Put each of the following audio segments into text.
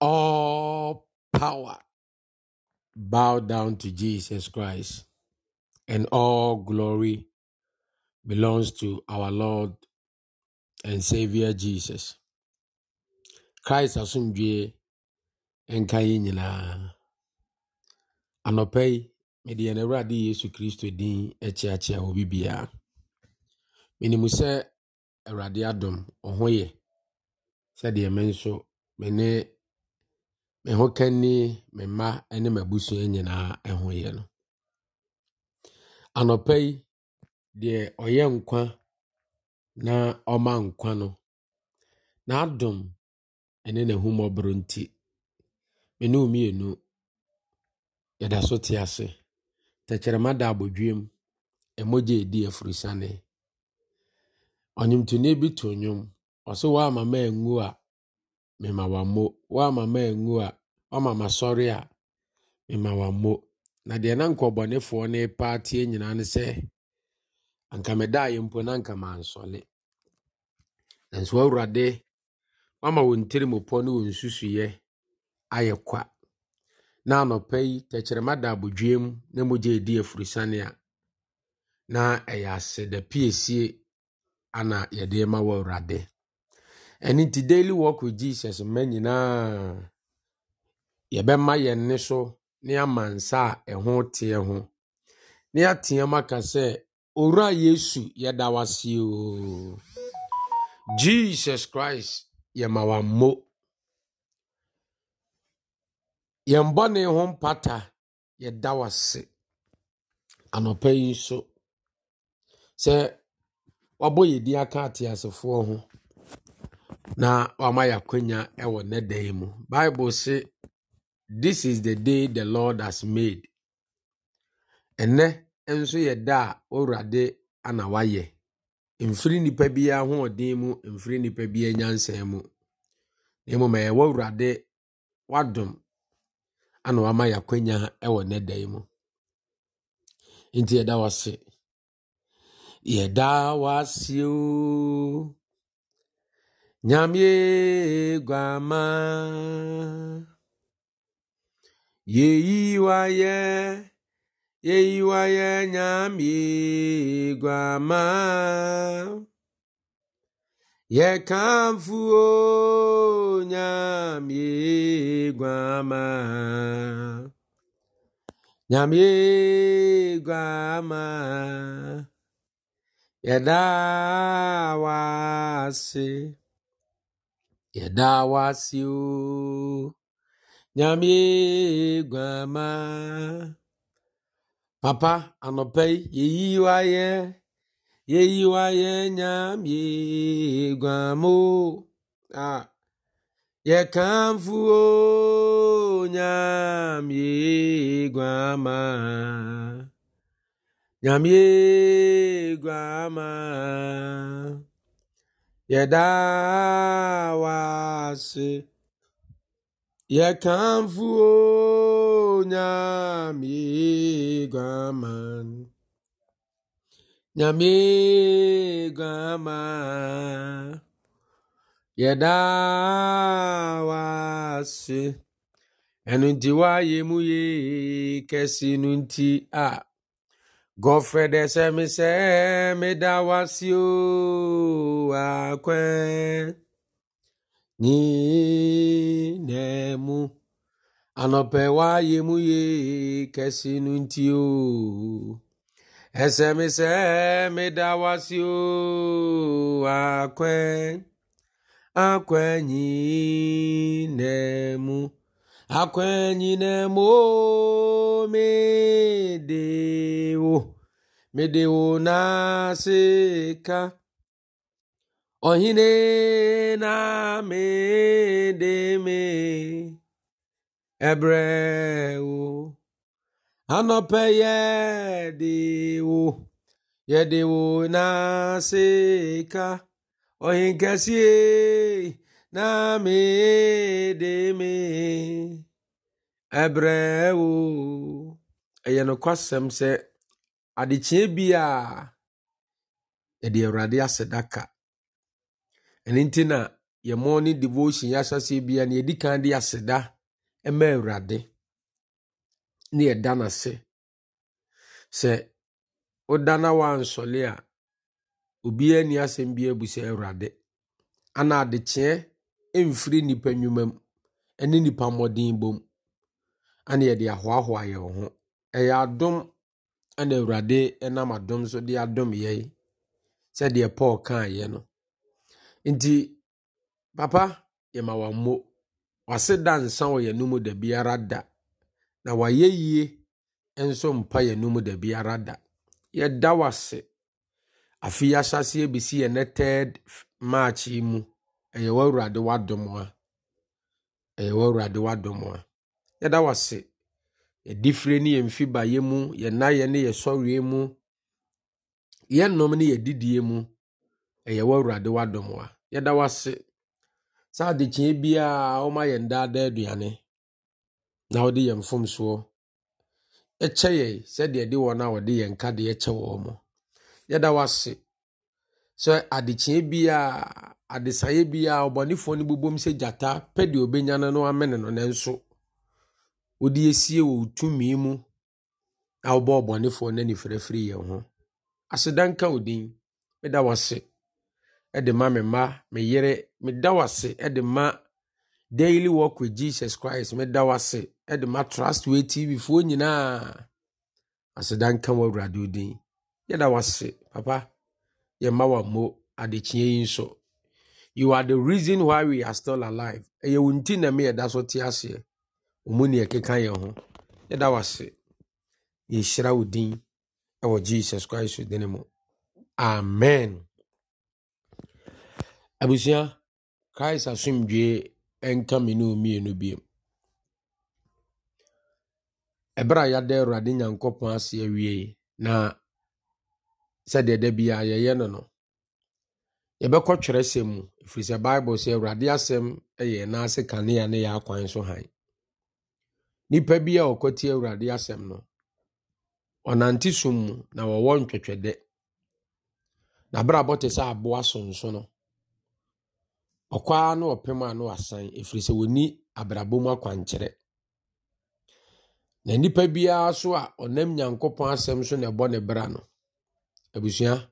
all power bow down to Jesus Christ, and all glory belongs to our Lord and Savior Jesus. Christ asomdwe nka yɛn nyinaa. Anɔpa yi, mede yɛn Awurade Yesu Kristo din akyeakyea wɔ bibiara. Menim se Awurade adom, ɔho yɛ, sɛdeɛ me nso, me ho kani me mma ne m'abusua nyinaa ho yɛ no anɔpa yi deɛ ɔyɛ nkwa na ɔma nkwa no n'adom ne n'ahummɔborɔ nti me ne wo mmienu yɛda so te ase tɛkyerɛma da abɔdwiem ɛmogye edi afurusane ɔnwomtoni bi to nnwom ɔsɛ woama ma angu a mema wammo woama ma angu a ɔma ma sɔre a mema wa mmo na deɛ na nkɔbɔnefoɔ ne paatie nyinaa ne sɛ anka meda a yɛmpo na anka mansɔle nanso awurade wama wɔn tirimopɔ ne wɔn susuiɛ ayɛ kwa na anɔpɛ yi tɛkyerɛma da abodwiem na mogya edi efurusane a na ɛyɛ aseda piesie ana yɛde ma wɔ awurade ɛne ti daily work with jesus mma nyinaa. yɛbɛma yɛn nne so ne ama nsa a ɛho teɛ ho ne yɛateam aka sɛ owura yesu yɛda wase o jesus christ yɛma wammo yɛn bɔne ho mpata yɛda wase anɔpa yi so sɛ wabɔ yɛ din aka ateasefoɔ ho na wama yɛakwanya ɛwɔ ne dan mu bible se This is the day the Lord has made. Ɛnɛ nso yɛ da a Owurade ana wayɛ. Mfiri nipa bi ahoɔden mu, mfiri nipa bi nyansa mu. Na mmom ɛyɛ w'Awurade w'adom ana wama yɛ akwanya wɔ nnɛ da mu. Nti yɛda wo ase. Yɛda wo ase o. Nyame guama. yeyiwaye yeyiwaye nyamigwama yekamfuo nyamigwama nyamigwama yɛdaa wase yɛdaa wase oo. nyame guama papa anɔpɛ yi yeyi wa yɛ yeyi wa yɛ nyame guamo a ah. yɛkamfu o nyame guama nyame guama yɛda wa se yɛkamfo nyame guaman nyame guama yɛda wase ɛno nti woayɛ mu ye kɛse no nti a gɔfrɛ dɛ sɛ me sɛ meda wase o akwɛn Ni n'emu anọpẹwa yemuye kẹsinu nti o ẹsẹmisẹ mi da wa si o akwẹ akwẹyin n'emu akwẹyin n'emu o mi de o mi de o na se ka. ohine na medeme ebreu anọpe ya yedewo na sika ohi nkesi e na medeme ebreu ɛyɛ nokwasɛm sɛ adekyee bi a ɛde awurade asɛ daka ɛno nti na yɛmo ne devotion yɛahyɛseɛ bia na yɛdi kan de aseda ma awurade ne yɛda n'ase sɛ woda na woansɔle a obiara nni asɛm bi abu sɛ awurade ana adekyeɛ mfiri nnipa nnwuma mu ne nnipa mmɔden bom ana yɛde ahoahoa yɛ wo ho ɛyɛ adom ana awurade nam adom so de adom yɛi sɛdeɛ paul kaeɛ no nti papa yɛma wammo wase da nsa wɔ yɛn mu da biara da na wayɛ yie nso mpa yɛn mu da biara da yɛda wase afe yi ahyɛseɛ bɛsi yɛn ne third march yi mu ɛyɛ w'awurade w'adom a ɛyɛ w'awurade w'adom a yɛda wase yɛdi ne yɛn mfi baeɛ mu yɛn nayɛ ne yɛsɔreɛ mu yɛn nom ne yɛdidie mu ɛyɛ w'awurade w'adom a yɛda wase saa adekyee biara wɔma yɛn daadaa aduane na wɔde yɛn mfomsoɔ ɛkyɛ yɛn sɛdeɛ de wɔn a wɔde yɛn ka de ɛkyɛ wɔn mo yɛda wase sɛ adekyee biara adesaeɛ biara ɔbɔnefoɔ no bobom sɛ gyata pɛ deɛ ɔbɛnya no no amene no nanso wɔde esie wɔ tumi mu a wɔbɔ ɔbɔnefoɔ no ani firafiri yɛn ho asedanka odin ɛda wase de ma me mma me yere meda wase de ma daily walk with jesus christ meda wase de ma trust way tv foɔ nyinaa aseda nka wɔ awurade odin yɛda wase papa yɛmma wammo adekyea yi nso you are the reason why we are still alive ɛyɛ wo nti na meyɛda so te aseɛ ɔmu ne ɛkeka yɛn ho yɛda wase yɛhyira wo din ɛwɔ jesus christ din mu amen abusua Kraịst asomdwee nka me ne mmienu bio ɛberɛ a yɛada awurade nyankopɔn ase awie na sɛdeɛ da biaa yɛyɛ no no yɛbɛkɔ twerɛ sɛm mu ɛfiri sɛ bible sɛ awurade asɛm yɛ naase kanea ne yɛ akwan so han nnipa bi a ɔkɔti awurade asɛm no ɔnante som mu na wɔwɔ ntwɛtwɛdɛ na berɛ abɔ te sɛ aboa sonso no ɔkɔ ara na ɔpem a na wasan ɛfiri sɛ wɔni abrabɔ mu akwankyerɛ na nnipa biara so a ɔnam nyankopɔn asɛm so na ɛbɔ ne bra no abusua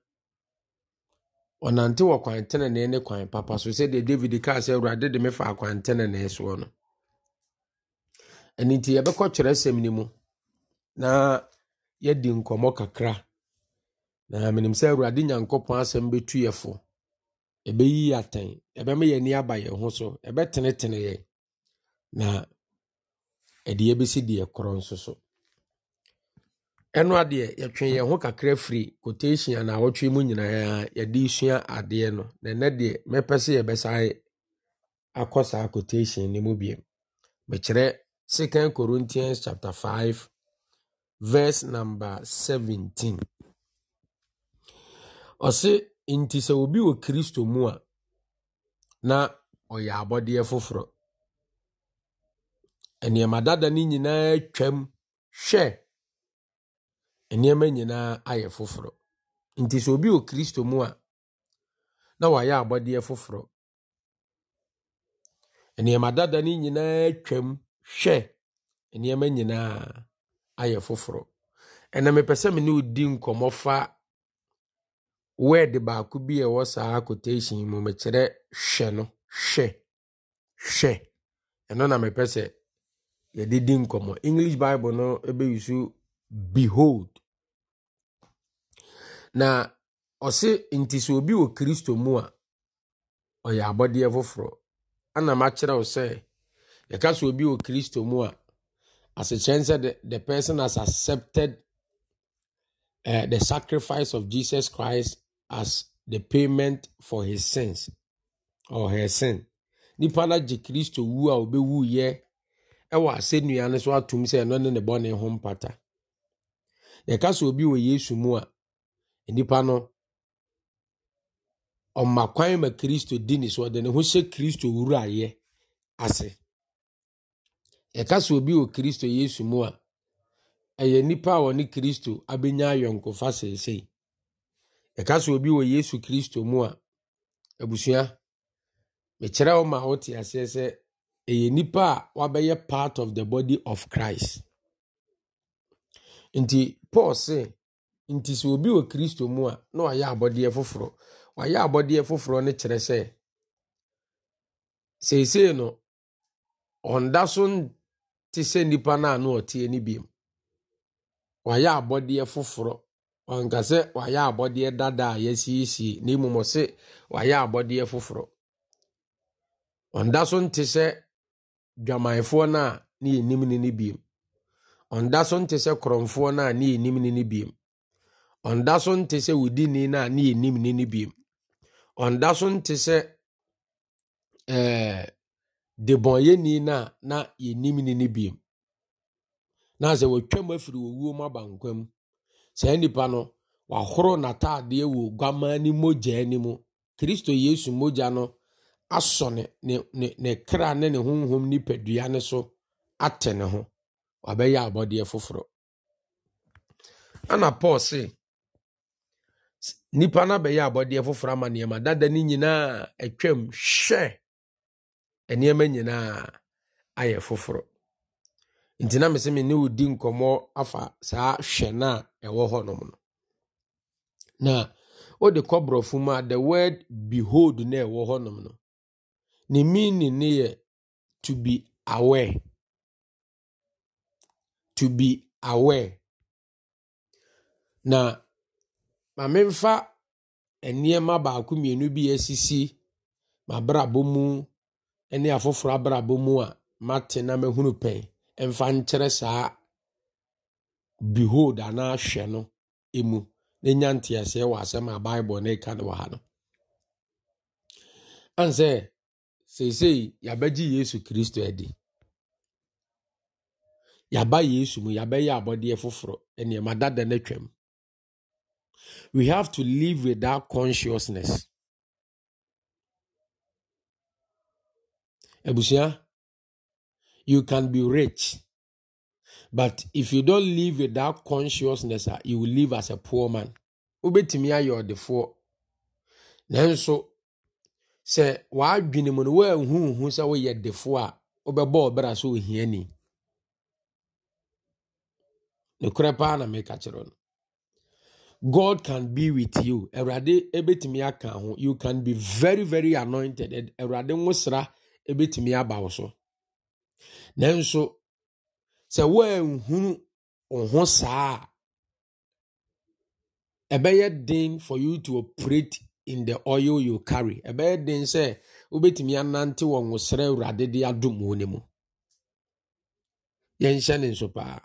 ɔnante wɔ kwan tenenee ne kwan papa so sɛdeɛ david kaa sɛ awurade de me fa kwan tenenee soɔ no ɛno nti yɛbɛkɔ kyerɛ sɛm no mu na yɛdi nkɔmmɔ kakra na menim sɛ awurade nyankopɔn asɛm bɛtu yɛ fo ɛbɛyi yɛ atɛn ɛbɛma yɛn ani aba yɛn ho so ebe ɛbɛtenetene yɛn na bi si deɛ korɔ nso so ɛno adeɛ yɛtwe yɛn ho kakra firi quotation na wɔtwe mu nyinaa yɛde sua adeɛ no na ɛnɛ deɛ mɛpɛ sɛ yɛbɛsae akɔ saa quotation no mu bie. mekyerɛ second corinthians chapter 5 verse number 17 ɔse nti sɛ obi wɔ kristo mu a na ɔyɛ abɔdeɛ foforɔ nneɛma dada no nyinaa twam hwɛ nneɛma nyinaa ayɛ foforɔ nti sɛ obi wɔ kristo mu a na wayɛ abɔdeɛ foforɔ nneɛma dada no nyinaa twam hwɛ nneɛma nyinaa ayɛ foforɔ ɛna mepɛ sɛ me ne odi nkɔmmɔ fa word baako bi a ɛwɔ saa quotation mu mekyerɛ hwɛ no hwɛ hwɛ ɛno na mepɛ sɛ yɛde di nkɔmmɔ english bible no bɛyi so behold na ɔse nti sɛ obi wɔ kristo mu a ɔyɛ abɔdeɛ foforɔ ana makyerɛ wo sɛ yɛka sɛ obi wɔ kristo mu a asekyerɛn sɛ the person has accepted uh, the sacrifice of jesus christ as the payment for his sins or her sin nipa na gye kristo wu a obe wu yɛ ɛwɔ asɛnnua no so atom sɛ ɛno ne ne bɔne ho mpata yɛka sɛ obi wɔ yesu mu a nipa no ɔma kwan ma kristo di ne so ɔde ne ho hyɛ kristo wuraeɛ ase yɛka sɛ obi wɔ kristo yesu mu a ɛyɛ nipa a wɔne kristo abɛnya ayɔnkofa seesei ɛka sɛ obi wɔ yesu kristo mu a abusua mekyerɛ wo ma wote aseɛ sɛ ɛyɛ nnipa a wabɛyɛ part of the body of christ nti paul se nti sɛ obi wɔ kristo mu a na wayɛ abɔdeɛ foforɔ wayɛ abɔdeɛ foforɔ no kyerɛ sɛ seesei no ɔnda so nte sɛ nnipa no a na ɔteɛ no biom wayɛ abɔdeɛ foforɔ ɔnka sɛ wayɛ abɔdeɛ dada a yɛasiesie na mmom ɔse wayɛ abɔdeɛ foforɔ ɔnda so nte sɛ dwamanfoɔ no a ne yɛnim ne no biem ɔnda so nte sɛ korɔmfoɔ no a ne yɛnim ne no biem ɔnda so nte sɛ wodini no a ne yɛnim ne no biem ɔnda so nte sɛ ɛɛ eh, debɔnyɛni no a na yɛnim ne no biem na sɛ wɔatwam afiri wɔwuo mu aba nkwa mu saa nipa no wahoro n'ataadeɛ wɔ oguaman ne mogya ne mu kristo yesu mogya no asɔ ne ne ne kra ne ne honhom nipadua ne so atɛ ne ho wabɛyɛ abɔdeɛ foforɔ ɛna paul se nipa no abɛyɛ abɔdeɛ foforɔ ama nneɛma dada ne nyinaa atwam hwɛ nneɛma nyinaa ayɛ foforɔ nti na mesɛ me ne wo di nkɔmmɔ afa saa hwɛ no a ɛwɔ hɔnom no na wode kɔborɔfo mu a the word behold na ɛwɔ nom no ne meaning ne yɛ to be aware to be aware na ma memfa nneɛma baako mmienu bi asisi m'abrabɔ mu ne afoforɔ abrabɔ mu a mate na mahunu pɛn mfa nkyerɛ saa behold anaa hwɛ no emu na nya nteaseɛ wɔ asɛm a bible na eka no wɔ ha no ane seesei yesu kristo adi Yaba yesu mu yɛabɛyɛ abɔdeɛ foforɔ nneɛma dada no atwam we have to live with that consciousness abusua You can be rich. But if you don't live with that consciousness, ah, you will live as a poor man. you are the four. Then so say why woanhu we who woyɛ defoɔ a, the four? sɛ ohiani. Nokorɛ paa na meka kyerɛ no. God can be with you. Awurade ebetumi aka You can be very very anointed. Awurade nwosra ebetumi aba nanso sɛ woanhunu wo ho saa a ɛbɛyɛ den for you to operate in the oil you carry ɛbɛyɛ den sɛ wobɛtumi anante wɔ nwosrɛ awurade de adom wo ne mu yɛnhyɛ ne nso paa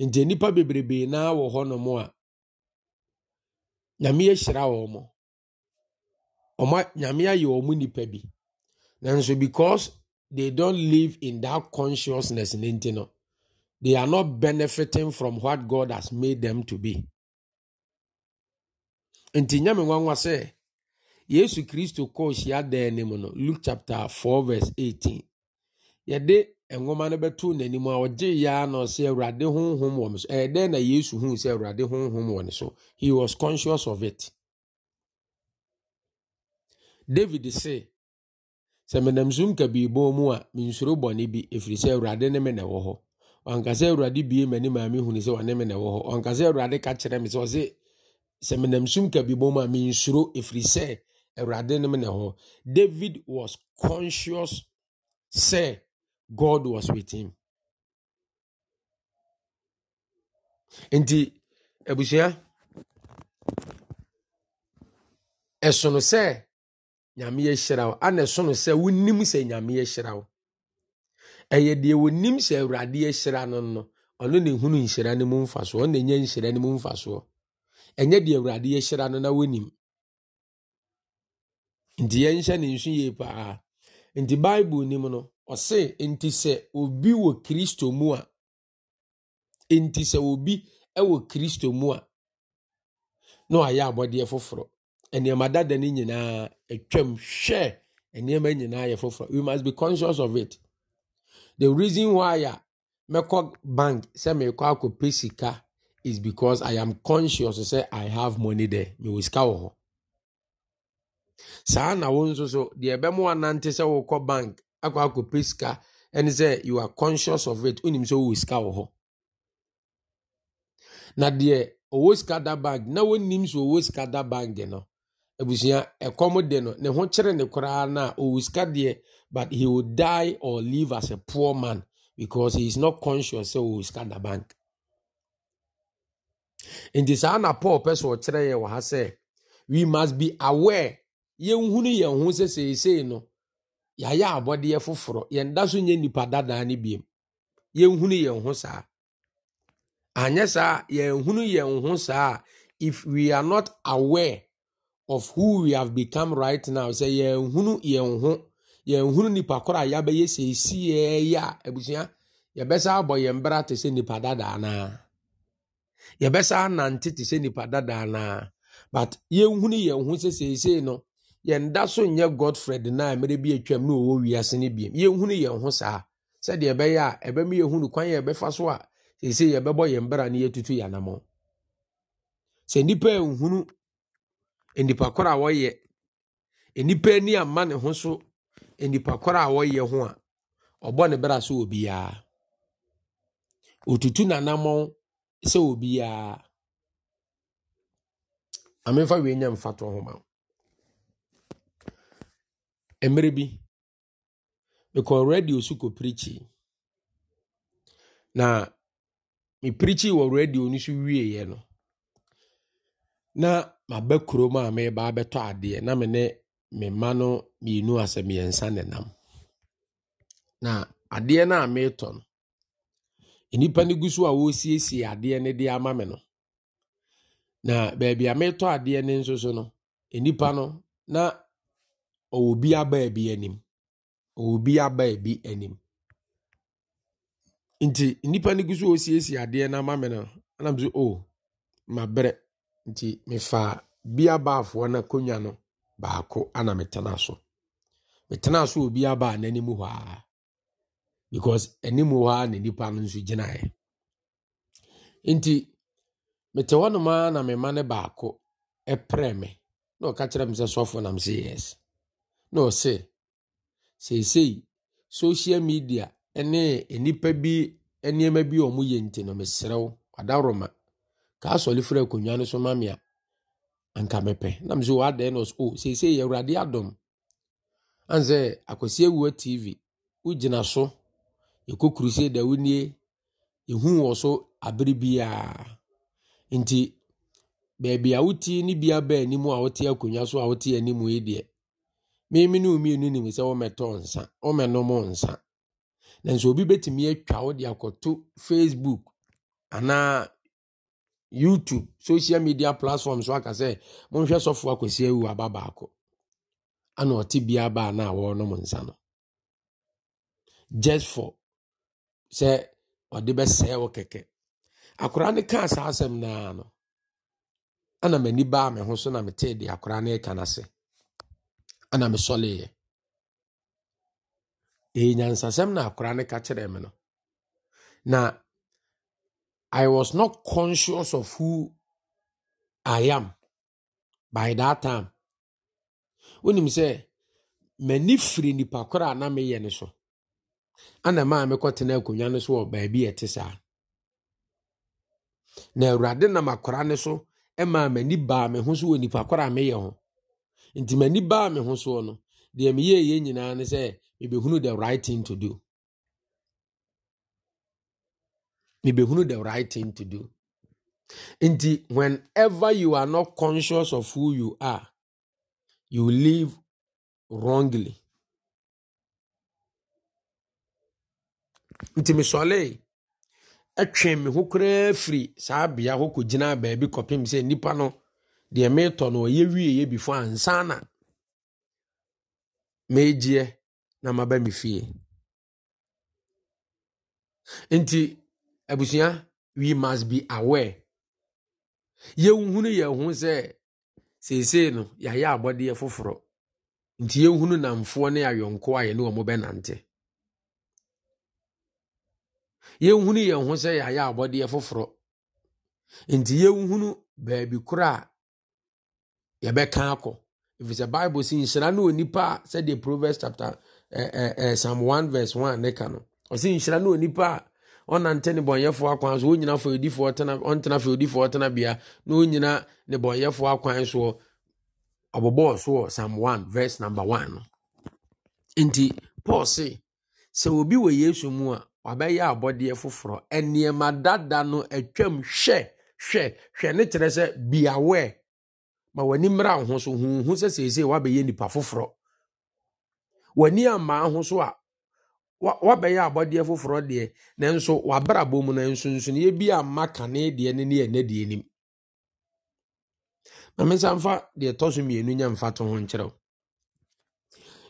nti nnipa bebrebee naa wɔ hɔnom a nyame ahyira wɔ mo nyame ayɛ wɔ mu nnipa bi nanso because they don't live in that consciousness in They are not benefiting from what God has made them to be. Nti nyame nwanwa sɛ Yesu Kristo kɔɔ hyia dan ne mu Luke chapter 4 verse 18. Yɛde nwoma no bɛto n'anim a ɔgye ya na ɔsɛ Awurade honhom wɔ ne so. Ɛyɛ na Yesu huu sɛ Awurade honhom wɔ so. He was conscious of it. David say sɛ menam sum kabii bɔn mu a mensuro bɔne bi ɛfiri sɛ awurade ne me na ɛwɔ hɔ ɔnka awurade bie m'ani maame hunu sɛ ɔne me na ɛwɔ hɔ ɔnka awurade ka kyerɛ me sɛ ɔse sɛ menam sum kabii bɔn mu a mensuro ɛfiri sɛ awurade ne me na ɛwɔ hɔ david was conscious sɛ god was with him nti abusua ɛsono sɛ nyame yɛhyira wo ana ɛso no sɛ wonim sɛ nyame yɛhyira wo ɛyɛ deɛ wonim sɛ awurade yɛhyira no no ɔno ne hunu nhyira no mu mfasoɔ ɔno na enya nhyira no mu mfasoɔ ɛnyɛ deɛ awurade yɛhyira no na wonim nti yɛnhyɛ ne nsu yie paa nti bible nim no ɔse nti sɛ obi wɔ kristo mu a nti sɛ obi wɔ kristo mu a na wayɛ abɔdeɛ foforɔ nneɛma dada ne nyinaa atwam hwɛ nneɛma nyinaa yɛ foforɔ we must be conscious of it the reason why a mɛkɔ bank sɛ mɛkɔ akɔpɛ sika is because i am conscious sɛ i have money there mewɔ sika wɔ hɔ saa na wo nso so deɛ ɛbɛmo anante sɛ wokɔ bank akɔ akɔpɛ sika ɛne sɛ you are conscious of it wonim sɛ wowɔ sika wɔ hɔ na deɛ ɔwɔ sika da bank na wonim sɛ ɔwɔ sika da bank no abusua ɛkɔm de no ne ho kyerɛ ne koraa na ɔwɔ sika deɛ but he will die or live as a poor man because he is not conscious sɛ ɔwɔ sika da bank nti saa na paul pɛ so ɔkyerɛ yɛ wɔ ha sɛ we must be aware yɛnhunu yɛn ho sɛ seesei no yɛayɛ abɔdeɛ foforɔ yɛnda so nyɛ nipa dadaa no biem yɛnhunu yɛn ho saa anyɛ saa yɛnhunu yɛn ho saa if we are not aware of who we have become right now sɛ yɛn hunu yɛn ho yɛn nipa koro a yabɛyɛ sɛ esi yɛɛyɛ a ebusua yɛbɛsa abɔ yɛn bra te sɛ nipa dadaa naa yɛbɛsa anante te sɛ nipa dadaa naa but yɛn hunu yɛn ho sɛ seesei no yɛn da so nyɛ godfred naa mmerɛ bi atwam na ɔwɔ wiase no biem yɛn hunu yɛn ho saa sɛdeɛ ɛbɛyɛ a ɛbɛmu yɛn hunu kwan yɛ ɛbɛfa so a seesei yɛbɛbɔ yɛn bra na yɛtutu yɛn anamɔ sɛ nipa yɛn nnipa korɔ a wɔyɛ nnipa ani ama ne ho so nnipa korɔ a wɔyɛ ho a ɔbɔ ne bra so wɔ biara otutu n'anammɔn sɛ wɔ biara amemfa wei nya mfa to ho ma mmerɛ bi mekɔɔ radio so kɔ pirikyi na mepirikyi wɔ radio no so wieeɛ no na maba kurom a mereba abɛtɔ adeɛ na me mma no mmienu asɛ mmiɛnsa na na adeɛ no a meretɔ no nnipa no gu so a wɔresiesie adeɛ no de ama me no na baabi a meretɔ adeɛ no nso so no nnipa no na ɔwɔ bi abaa bi anim ɔwɔ bi abaa bi anim nti nnipa no gu so a wɔresiesie adeɛ no ama me no anam so o oh, mabrɛ nti mefa bia baafoɔ na akonnwa no baako ana metena so metena so wɔ bia baa n'anim hɔ aa because anim hɔ aa na nipa no nso gyinaeɛ nti mete hɔ nomaa na mema ne baako ɛprɛ me na ɔka kyerɛ me sɛ sɔfo nam sɛ yes na ɔse seesei social media ne nnipa bi nneɛma bi a ɔmo yɛ nti no meserɛ wo adaworoma ka asɔre firi akonnwa no so a anka mepɛ nam sɛ wɔadaɛ no o oh, seesei yɛ awurade adɔm sɛ akwasi awua tv wogyina so yɛkɔ kurusei da wonie yɛhu wɔ so abere biaa nti baabi a wote ne bia baa anim a wote akonnwa so a wote anim yi youtube social media platform so aka sɛ monhwɛ sɔfoɔ akwasi awu aba baako ana ɔte bia baa na wɔrenom nsa no just for sɛ ɔde bɛsɛe wo keke. akwaraa no kaa saa asɛm naa no ana m'ani baa me ho so na m metee de akwaraa no ɛka n'ase ana mesɔleeɛ ɛyɛ nyansasɛm na akwaraa no ka kyerɛ m no na I was not conscious of who I am by that time. Wonim sɛ m'ani firi nipa koro na meyɛ ne so. Ana maa mekɔtena akonnwa no so wɔ baabi a ɛte saa. Na Awurade nam akora ne so maa m'ani baa me ho so wɔ nipa koro a meyɛ ho. Nti m'ani baa me ho soɔ no, deɛ meyɛɛ yɛn nyinaa ne sɛ mebɛhunu the right thing to do. mebɛhunu the right thing to do nti whenever you are not conscious of who you are you live wrongly nti mesɔlee ɛtwe me ho koraa firi saa bea hɔ kɔgyina baabi kɔpem sɛ nnipa no deɛ meretɔ no ɔyɛ wieeɛ bifo ansa na meegyeɛ na maba me fie nti abusua we must be aware yɛnhunu yɛn ho sɛ seesei no yɛayɛ abɔdeɛ foforɔ nti yɛnhunu namfoɔ ne ayɔnko a yɛne wɔn bɛnante yɛnhunu yɛn ho sɛ yɛayɛ abɔdeɛ foforɔ nti yɛnhunu baabi korɔ a yɛbɛka akɔ efisɛ bible si nhyira ne onipa a sɛdeɛ proverbs chapter eh, eh, eh, psalm one verse one ne ka no ɔsi nhyira ne onipa a ɔnante ne bɔnyɛfoɔ akwan so ɔnyina fa odifoɔ tena ɔntena fa odifoɔ tena bia na ɔnyina ne bɔnyɛfoɔ akwan soɔ ɔbɔbɔɔ soɔ psalm one verse number one no nti paul se sɛ obi wɔ yesu mu a wabɛyɛ abɔdeɛ foforɔ nneɛma dada no atwam hwɛ hwɛ hwɛ ne kyerɛ sɛ be aware ma w'ani mmra ho so huhu sɛ seesei wabɛyɛ nipa foforɔ w'ani amaa ho so a wabɛyɛ abɔdeɛ foforɔ deɛ nanso wabrabɔ mu na nsonsonoeɛ bi a mma kane deɛ ne ne ɛnɛ deɛ nim na mensa mfa deɛ tɔ so mmienu nya mfa to ho nkyerɛw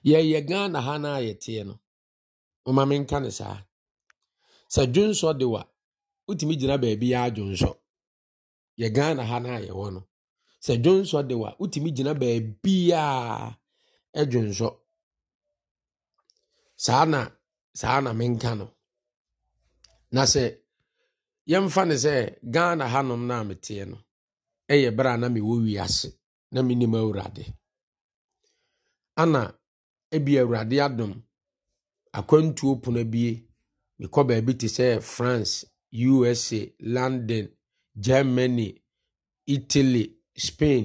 yɛyɛ ghana ha no a yɛteɛ no moma menka no saa sɛ dwonsɔ de wa wotumi gyina baabi yɛ adwonsɔ yɛ ghana ha no a yɛwɔ no sɛ dwonsɔ de wa wotumi gyina baabi a ɛdwonsɔ saa na saa na menka no na sɛ yɛmfa ne sɛ ghana hanom no a meteɛ no ɛyɛ berɛ a na mewɔ wiase na menim awurade ana ebi awurade adom akwantuo pono bie mekɔ baabi te sɛ france usa london germany italy spain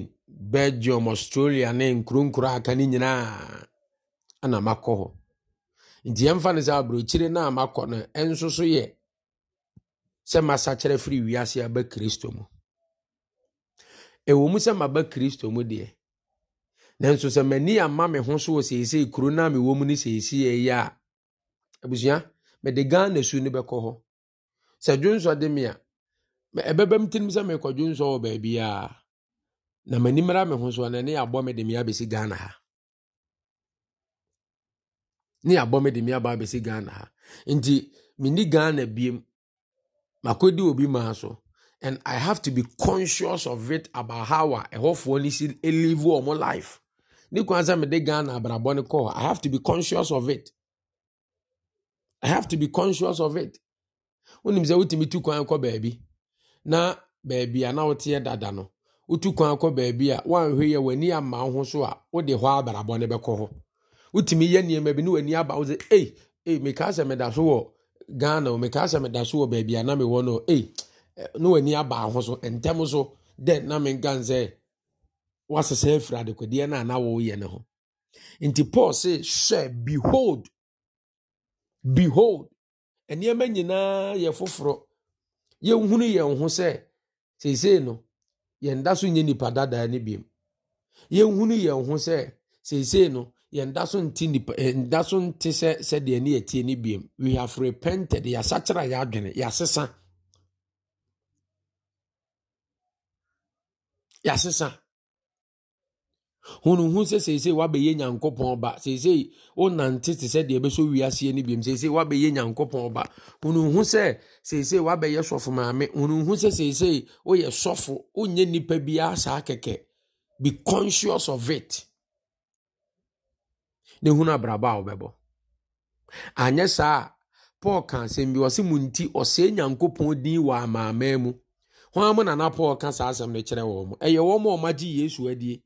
belgium australia ne nkuro nkuro aka no nyinaa ana makɔ hɔ nti yɛmfa no sɛ aburokyire no a makɔ no ɛnso so yɛ sɛ masakyerɛ firi wiase aba kristo mu ɛwɔ mu sɛ maba kristo mu deɛ nanso sɛ m'ani ama me ho so wɔ seesei kuro no a mewɔ mu no seesei ɛyɛ a abusua mede ghana su no bɛkɔ hɔ sɛ dwonsɔ de me a ɛbɛbɛm tirim sɛ mekɔ dwonsɔ wɔ baabiaa na m'ani mmara me ho so a na ne me de me abɛsi ghana ha ne abɔ me de me aba abɛsi ghana ha nti mini ghana biem makɔdi obi maa so and i have to be conscious of it about how a ɛhɔfoɔ no si eh, live wɔn life ne kwan sɛ mede ghana abrabɔ no kɔ i have to be conscious of it i have to be conscious of it wonim sɛ wotumi tu kwan kɔ baabi na baabi a na woteɛ dada no wotu kwan kɔ baabi a woanhwɛ yɛ w'ani ama wo ho so a wode hɔ abrabɔ no bɛkɔ hɔ wotumi yɛ nneɛma bi ne w'ani aba wo sɛ ei ei mekaa sɛ meda so wɔ ghana o mekaa sɛ meda so wɔ baabi a na mewɔ no ei ne w'ani aba ho so ntɛm so dɛn na menka sɛ wasesa afiri adekwadeɛ no a na wɔyɛ ne ho nti paul se hwɛ behold behold nneɛma nyinaa yɛ foforɔ yɛnhunu yɛn ho sɛ seesei no yɛnda so nye nipa dadaa no biom yɛnhunu yɛn ho sɛ seesei no yɛnda so nti nipa yɛnda eh, so nti sɛ sɛdeɛ ne yɛtie ne biem we have repented yɛasakyera yɛadwene yɛasesa yɛasesa hunuhu sɛ seesei wabɛyɛ nyankopɔn ba seesei wonante te sɛdeɛ ɛbɛsɔ wiaseɛ no biom seesei wabɛyɛ nyankopɔn ba hunuhu sɛ seesei wabɛyɛ sɔfo maame hunuhu sɛ seesei woyɛ sɔfo wonyɛ nnipa biara saa kɛkɛ be conscious of it na ehunu abrabɔ a wɔbɛbɔ anyɛ saa a paul ka asɛm bi ɔsi mu nti ɔsɛɛ nyankopɔn din wɔ amaamaa mu wɔn amu nana paul ka saa asɛm no kyerɛ wɔn ɛyɛ wɔn a wɔagye yesu adie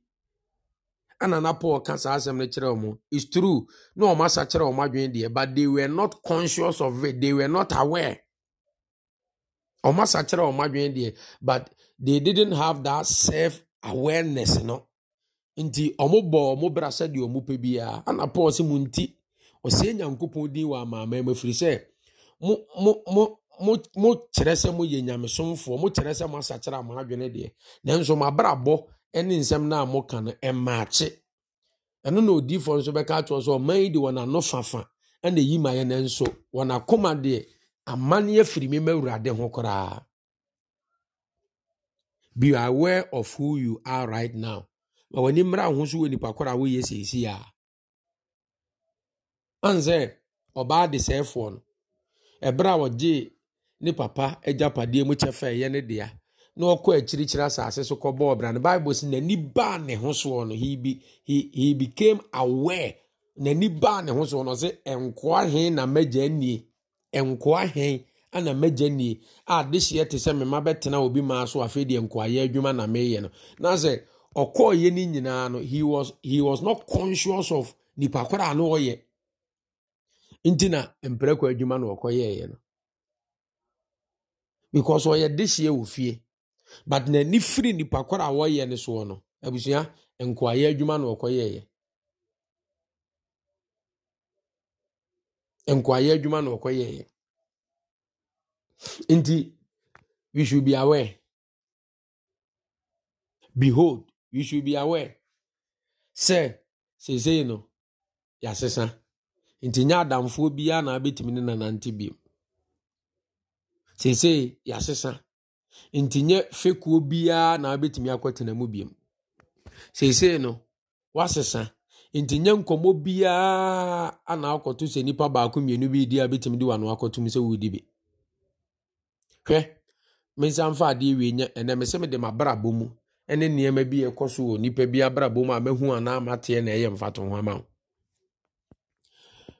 anana paul ka saa asɛm no kyerɛ wɔn it's true na wɔn asa kyerɛ wɔn adwene deɛ but they were not conscious of it they were not aware wɔn asa kyerɛ wɔn adwene deɛ but they didn't have that self awareness no. nti ɔmobɔ mo bra sɛdeɛ ɔmopɛ biara ana paul sɛ mo nti ɔsɛe nyankopɔn din wɔ amaama mu ɛfiri sɛ mokyerɛ sɛ moyɛ nyamesomfoɔ mokyerɛ sɛ moasakyerɛ ama adwene deɛ nanso mabrabɔ ne nsɛm no a moka no ɛmaakye ɛno na odiifoɔ nso bɛka atoɔ sɛ ɔman yi de ano fafa ana eyi ma yɛ no nso wɔnakoma deɛ amanneɛ firi me ma awurade ho koraa be aware of who you are right now ma w'ani mmra ho so wɔ nipa koro a woyɛ seesi a an ɔbaa de sɛɛfoɔ no ɛberɛ a ɔgye ne papa agyapadeɛ mu kyɛ fa ɛyɛ ne dea na ɔkɔ akyirikyiri asase so kɔbɔ ɔbra no bible sɛ n'ani baa ne ho soɔ no he, be, he, became aware n'ani baa ne ho soɔ no ɔsɛ nkoa he na mɛgya nie nkoa he ana mɛgya nie a dehyeɛ ah, te sɛ mema bɛtena obi maa so afei deɛ nkoayɛ adwuma na meyɛ no na sɛ ɔkɔɔyɛ no nyinaa no he was, he was not conscious of nipa koraa na ɔyɛ nti na mprɛkɔ adwuma na ɔkɔyɛeɛ no because ɔyɛ dehyia wọ fie but n'ani firi nipa koraa a wɔyɛ no soɔ no abusua nkoayɛ adwuma na ɔkɔyɛeɛ nkoayɛ adwuma na ɔkɔyɛeɛ nti we should be aware behold you should be aware sɛ seesei no yɛasesa nti nyɛ adamfoɔ biara na abɛtumi ne nanante biom seesei yɛasesa nti nyɛ fekuo biara na abɛtumi akɔtena mu biom seesei no wasesa nti nyɛ nkɔmmɔ biara ana akɔto sɛ nipa baako mmienu bi di a bɛtumi de wano akɔtom sɛ wɔredi bi hwɛ mensa mfa adeɛ wie nyɛ ɛnɛ me sɛ mede m'abrabɔ mu ne nneɛma bi ɛkɔ so wɔ nipa bi abrabɔ mu a mehu anaa mateɛ na ɛyɛ mfato ho ama wo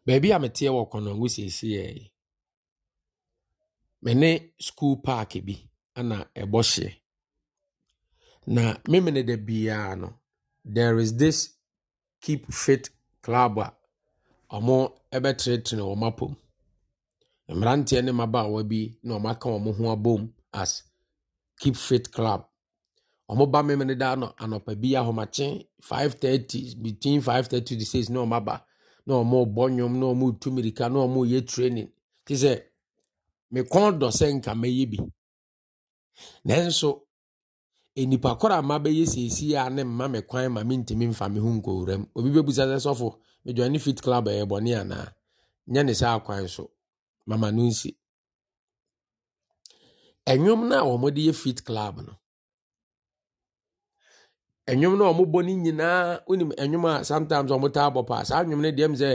baabi a meteɛ wɔ ngu siesie yɛ Mene ne paaki bi ana ɛbɔ hyeɛ na memene da biara no there is this keep fit club a ɔmo ɛbɛtenetene wɔn apom mmeranteɛ ne mmabaawa bi na ɔmo aka wɔn ho abom as keep fit club ɔmoba me mene da no anɔpa bi ahomakye 530 between 530 na ɔmaba na ɔmo bɔ na ɔmo mirika na ɔmo yɛ training te sɛ me kɔn dɔ sɛ nka mɛyɛ bi nanso enipa koro a ma bɛyɛ seesi a ne mma me kwan ma mentumi mfa me ho nkowura mu obi bɛbusa sɛ sɔfo medwa fit club ɛyɛ bɔne anaa nyɛ ne saa kwan so mama no nsi ɛnwom no a wɔmode yɛ fit club no ɛnwom no a ɔmobɔ no nyinaa wonim ɛnwom a sometimes ɔmotaa bɔ paa saa nwom no sɛ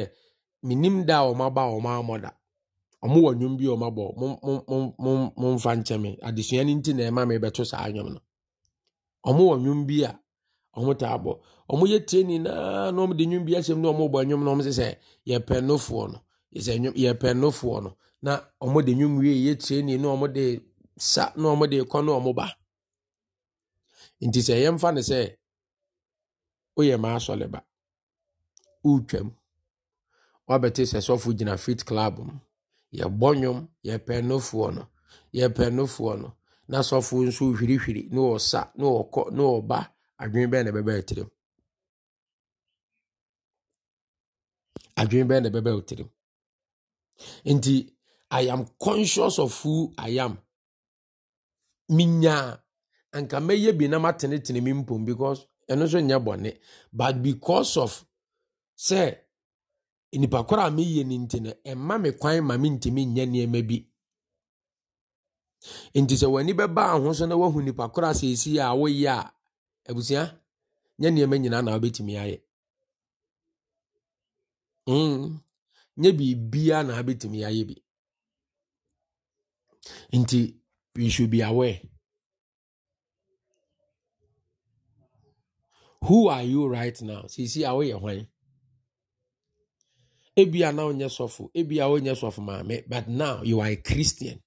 menim da a ɔmaba a ɔmaamɔ da ɔmowɔ nwom bi a ɔmabɔ momfa nkyɛme adesua no nti na ɛma mebɛto saa nwom no ɔmowɔ nwom bi a ɔmotaa bɔ ɔmoyɛ tie nyinaa na ɔmde nwom bi ahyɛm na ɔmobɔ nwom no ɔmse sɛ yɛpɛ nofoɔ no yɛpɛ nofoɔ no na ɔmode wie yɛ tie ni na sa na woyɛ maasɔleba wotwam wabɛte sɛ sɔfo gyina fit club mu yɛbɔ nnwom yɛpɛ nofoɔ no yɛpɛ nofoɔ no na sɔfo nso hwirihwiri ne ɔsa ne ɔkɔ ne ɔba adwene bɛn na ɛbɛbɛ tirim adwene bɛn na ɛbɛbɛ tirim nti i am conscious of who i am minyaa anka mɛyɛ bi na matenetene me mpom because ɛno nso nyɛ bɔne but because of sɛ nipa koro a meyie no nti no ɛma me kwan ma mentumi nyɛ nneɛma bi nti sɛ w'ani bɛbaa ho na woahu nipa koro a seesii a woyɛ a abusua nyɛ nneɛma nyinaa na wobɛtumi ayɛ mm. nyɛ biribiaa na wobɛtumi ayɛ bi nti you should be aware who are you right now sisi a woyɛ hwan ebia na wonyɛ sɔfo ebia wonyɛ sɔfo maame but now you are a christian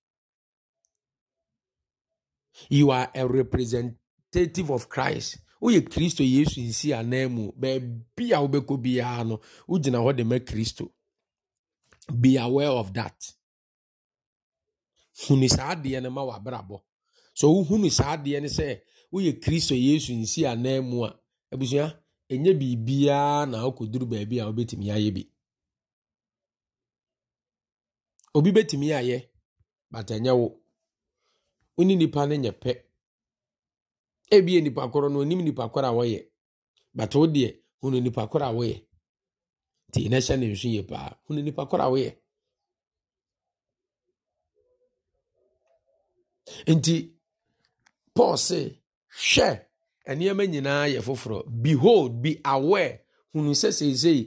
you are a representative of christ woyɛ kristo yesu nsi anan mu baabi a wobɛkɔ biara no wogyina hɔ de ma kristo be aware of that hunu saa adeɛ no ma wabrabɔ so wohunu saa adeɛ no sɛ woyɛ kristo yesu nsi anan mu a ebusua ɛnyɛ biribiara na ɔkɔduru beebi a obetumi ayɛ bi obi betumi ayɛ bata ɛnyɛ wo wone nipa no nye pɛ ebie nipa korɔ no onim nipa korɔ a wɔyɛ bata wo deɛ hunu nipa korɔ a wɔyɛ nti na hyɛ ne nsu yie paa hunu nipa a wɔyɛ nti paul hwɛ nneɛma nyinaa yɛ foforɔ behold be aware hunu sɛ seesei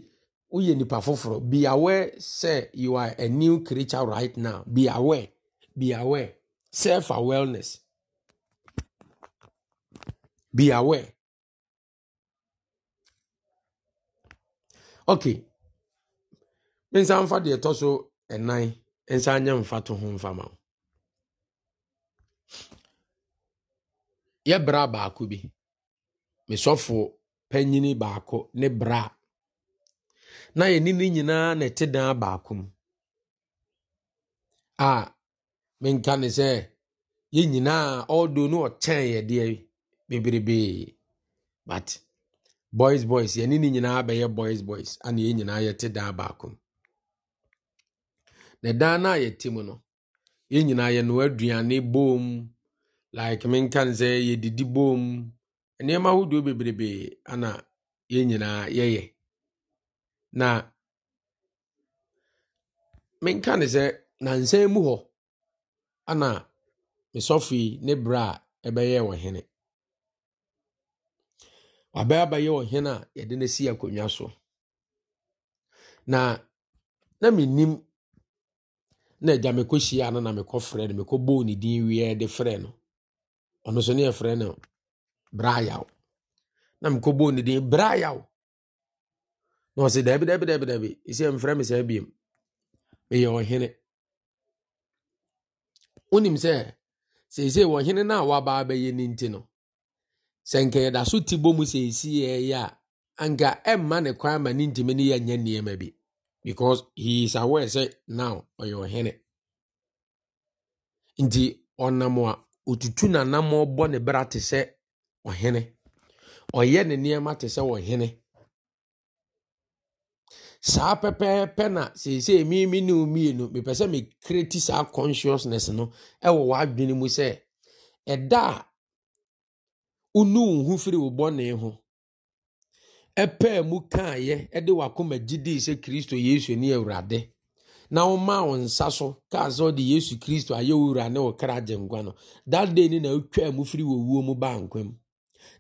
woyɛ nipa foforɔ be aware sɛ you are a new creature right now be aware be aware self awareness be aware okay mensa mfa deɛ ɛtɔ so ɛnan nsa nyɛ mfa to ho mfa ma wo yɛbra baako bi mesɔfoɔ panyini baako ne bra na yɛne ne nyinaa na ɛte dan baako mu a menka ne sɛ yɛn nyinaa ɔdo no ɔkyɛn yɛdeɛ bebrebee but boys boys yɛne ne nyinaa bɛyɛ boys boys ana yɛn nyinaa yɛte dan baako mu na dan no a yɛte mu no yɛn nyinaa yɛnoa aduane bom like menka ne sɛ yɛdidi bom nneɛma ahodoɔ bebrebee ana yɛn nyinaa yɛyɛ na menka ne sɛ nansan mu hɔ ana mesɔfii ne berɛ a ɛbɛyɛ wɔ hene wabɛyɛ abɛyɛ wɔ hene a yɛde no si akonnwa so na na menim na agya mekɔhyia no na mekɔfrɛ no mekɔbɔɔ ne din wieɛ de frɛ no ɔno so ne yɛfrɛ no braayaw na mekɔbɔɔ ne din brayaw na ɔse daabi daabi daabi daabi ɛsɛ mfrɛ me saa biom meyɛ ɔhene wonim sɛ seesei ɔhene no a wabaa bɛyɛ ne nti no sɛ nka yɛda so te bɔ mu seesii ɛyɛ a anka ɛmma ne kwan ma ne ntimi ne yɛnyɛ nneɛma bi because he is aware sɛ now ɔyɛ ɔhene nti ɔnam a otutu nanam ɔbɔ ne bra te sɛ ɔhene ɔyɛ ne nneɛma te sɛ ɔhene saa pɛpɛɛpɛ na seesei mi ne mmienu mepɛ sɛ ti saa consciousness no ɛwɔ w'adwene mu sɛ ɛda a wonu wo ho firi wo bɔne ho ɛpɛɛ mu kaayɛ ɛde wakoma sɛ kristo yesu ne na womaa wo nsa so kaa sɛ ɔde yesu kristo ayɛ wura ne kra no na mu firi wuo mu baa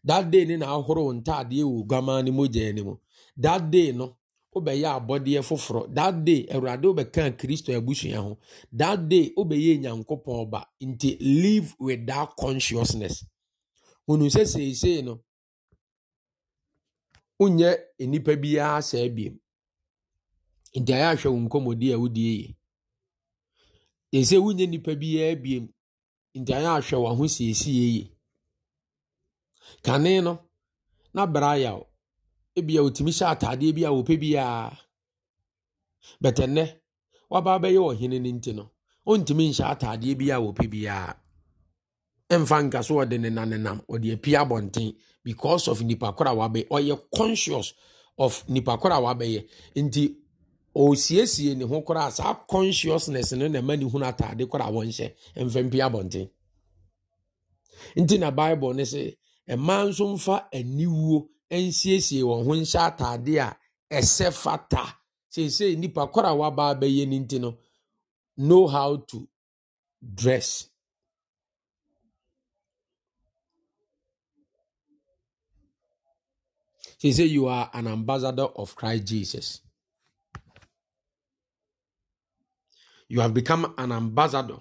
that day ni na ahoro wo ntaadeɛ wɔ oguamaa no mogya no mu that day no wobɛyɛ abɔdeɛ foforɔ that day awurade wobɛkaa kristo abusua ho that day wobɛyɛ nyankopɔn ba nti live with that consciousness hunu sɛ seesei no wonyɛ nnipa biara saa nti ayɛ ahwɛ wo nkɔmmɔdi a wodie yi wonyɛ nnipa biara nti ayɛ ahwɛ siesie yi kane no n'abere ayaw ebia otumi hyɛ ataadeɛ bi a wɔpɛ biara bɛtɛ nnɛ waba abɛyɛ ɔhene no nti no ɔntumi nhyɛ ataadeɛ bi a wɔpɛ biara mfa nka so ɔde ne nanenam ɔde api abɔnten because of nipa koro a wabɛyɛ ɔyɛ conscious of nipa koro a wabɛyɛ nti ɔsiesie ne ho koraa saa consciousness no na ɛma ne hunu ataade koro a wɔnhyɛ mfɛmpi abɔnten nti na bible ne sɛ mmaa nso mfa aniwuo nsiesie wɔn ho nhyɛ ataadeɛ a ɛsɛ fata seesei nipa koro a waba abɛyɛ ne nti no know how to dress. He said, You are an ambassador of Christ Jesus. You have become an ambassador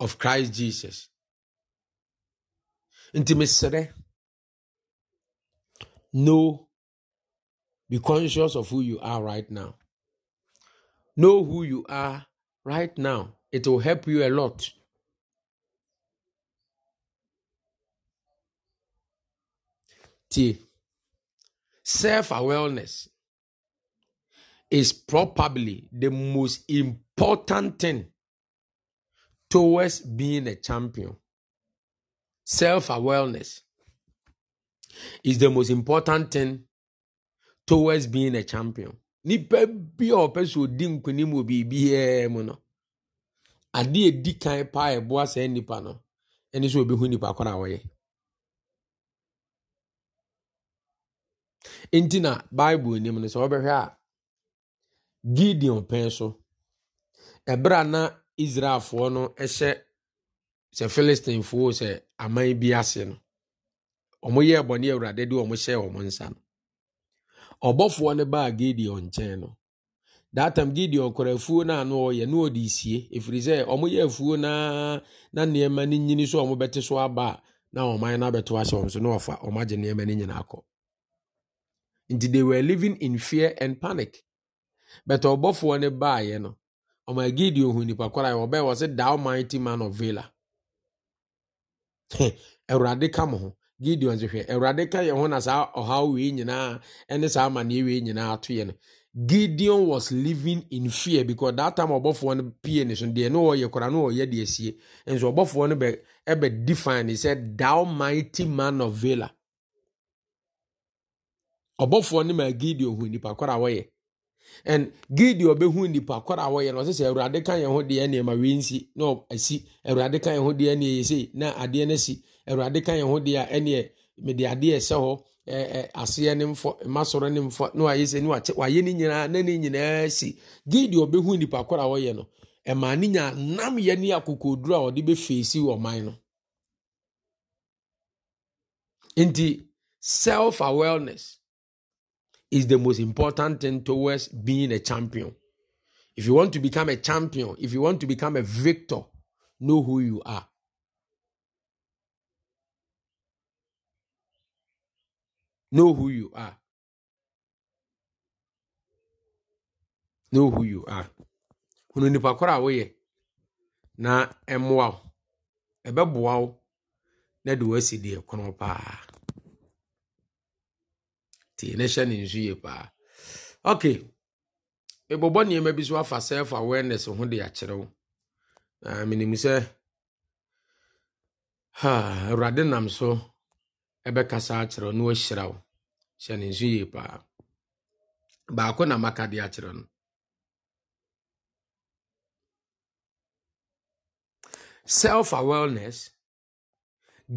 of christ jesus nti mesrɛ no be conscious of who you are right now know who you are right now it will help you a lot T. self awareness is probably the most important thing towards being a champion. Self awareness is the most important thing towards being a champion. Nipa bi a ɔpɛ so odi nkunim wɔ biribiara mu no, adeɛ edi kan paa ɛboa saa nipa no, ɛne sɛ obi hu nipa koro a ɔyɛ. Nti na Bible nim no sɛ ɔbɛhwɛ a Gideon pɛn so, ɛbɛrɛ a na israelfoɔ no hyɛ sɛ philistinefoɔ sɛ aman bi ase no ɔmoyɛɛ bɔne awurade de ɔmo hyɛɛ ɔmo nsa no ɔbɔfoɔ no baa gideon nkyɛn no that time gideon kɔra afuo no ano ɔyɛ ne ɔde sie ɛfiri sɛ ɔmoyɛ afuo naa na nneɛma no nyini so ɔmobɛte so aba a na ɔman no abɛto ahyɛ ɔm so na ɔfa ɔmagye nneɛma no nyinaa kɔ nti they were living in fear and panic but ɔbɔfoɔ no yɛ no ɔma gideon hu nipa kora yi ọbịa wɔ sɛ thou mighty man of vela awurade ka mo ho gideon sɛ hwɛ ka yɛ ho na saa ɔhaw wei nyinaa ɛne saa amanneɛ ewee nyinaa atụ ya no gideon was living in fear because data time ɔbɔfoɔ no pie ne so deɛ ne ɔyɛ kora ne ɔyɛ deɛ sie nso ɔbɔfoɔ no bụ ɛbɛ define ne sɛ thou mighty man of vela ɔbɔfoɔ no ma gideon hụ nipa kora a wɔyɛ and gidi ɔbɛhu nipa kɔr a wɔyɛ no ɔsɛ sɛ awurade ka yɛn ho deɛ ne ɛma nsi na asi awurade ka yɛn ho deɛ ne ɛyɛsei na adeɛ no si awurade ka yɛn ho deɛ ɛneɛ mede adeɛ ɛsɛ hɔ aseɛ ne mfɔ mmasɔrɔ ne mfɔ na wayɛ sɛ ne wayɛ ne nyinaa na ne nyinaa si gidi ɔbɛhu nipa kɔr a wɔyɛ no ɛma ne nya nam yɛ ne akokoduro a ɔde bɛfeesi ɔman no nti self awareness is the most important thing towards being a champion. If you want to become a champion, if you want to become a victor, know who you are. Know who you are. Know who you are. Hunu nipa koro na ɛmoa ebe ɛbɛboa wo na de kono paa hyɛ ne nsu yie paa okay nneɛma bi so afa self awareness ho de na sɛ awurade nam so ɛbɛkasa na wahyira wo hyɛ ne nsu yie paa baako na maka de akyerɛ no self awareness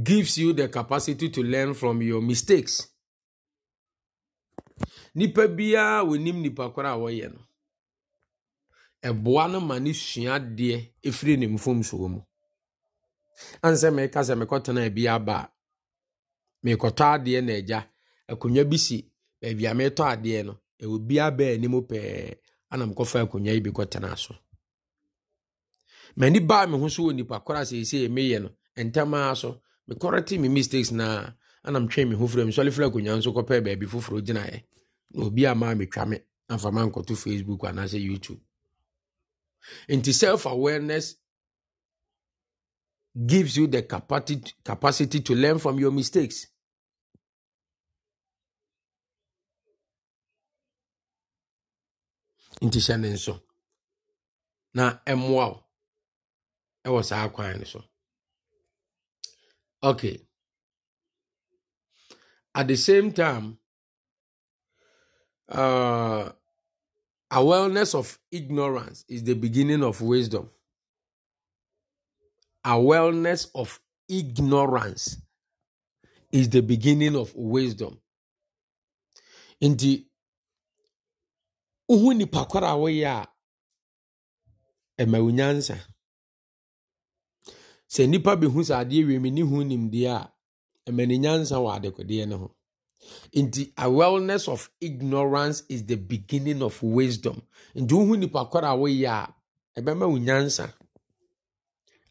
gives you the capacity to learn from your mistakes nnipa biara nipa nnipakorɔ a wɔyɛ no ɛboa no ma ne sua adeɛ efiri ne mfomsoɔ mu ane sɛ meka sɛ mekɔtena abi aba a merekɔtɔ adeɛ na ɛgya akonnwa bi si baabi a meretɔ adeɛ no ɛwɔ biara baa anim pɛɛ ana mekɔfa akonnwa yi bi kɔtena so m'ani baa me ho so wɔ nnipa korɔ a seesei meyɛ no ntam ara so mekɔrɔ te mi mistakes naa ana twɛn me ho firi mu sɔle firi akonnwa nso kɔpɛɛ baabi foforɔ gyinaeɛ obi ama metwa me amfa ma nkɔto facebook anaasɛ youtube nti self awareness gives you the capacity, capacity to learn from your mistakes nti hyɛ ne nso na ɛmmoa wo ɛwɔ saa kwan no so okay at the same time uh, awareness of ignorance is the beginning of wisdom. Awareness of ignorance is the beginning of wisdom. Nti, uhu nipa kwara woyɛ a, ɛma wo nyansa. Sɛ nipa bi hu sɛ adeɛ wiem ne hu nyansa ho. nti awareness of ignorance is the beginning of wisdom nti wohu nipa kɔrɔ a ebe a ɛbɛma wo nyansa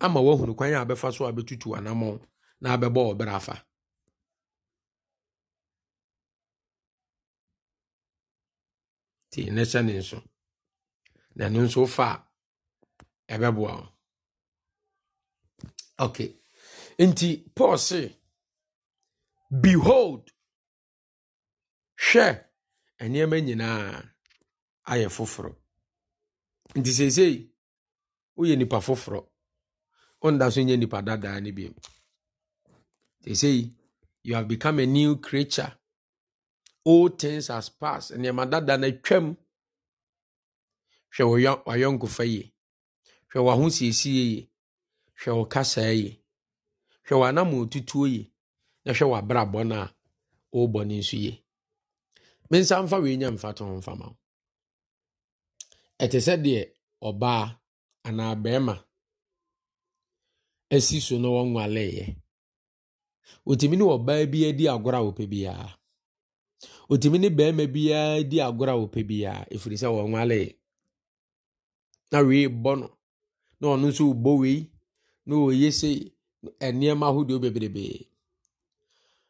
ama woahunu kwan a so a bɛtutu na abɛbɔ ɔbrɛ ti nti ne hyɛ nso na ɛno nso fa a ɛbɛboa wo okay nti paul behold hwɛ nneɛma nyinaa ayɛ foforɔ nti seesei woyɛ nipa foforɔ wonda so nyɛ nipa dadaa no bio seesei you have become a new creature old things has pass nneɛma dadaa no atwam hwɛ wayɔnkofa yie hwɛ wahosiesie yie hwɛ wo kasaa yie hwɛ w'anama otutuo yie na hwɛ w'abrabɔ no a worebɔ no nso yie mensa mfa wei nya mfa tɔn mfa ma ɛte sɛ deɛ ɔbaa anaa bɛrima esi so na wɔn wɔnwaleeɛ otumi ne ɔbaa bi adi agorɔ a wɔpɛ biara otumi ne bɛrima bi di agorɔ a wɔpɛ biara ɛfiri sɛ wɔnwalee na wee bɔ no na ɔno nso bɔ wei na oye sɛ nneɛma ahodoɔ bebrebee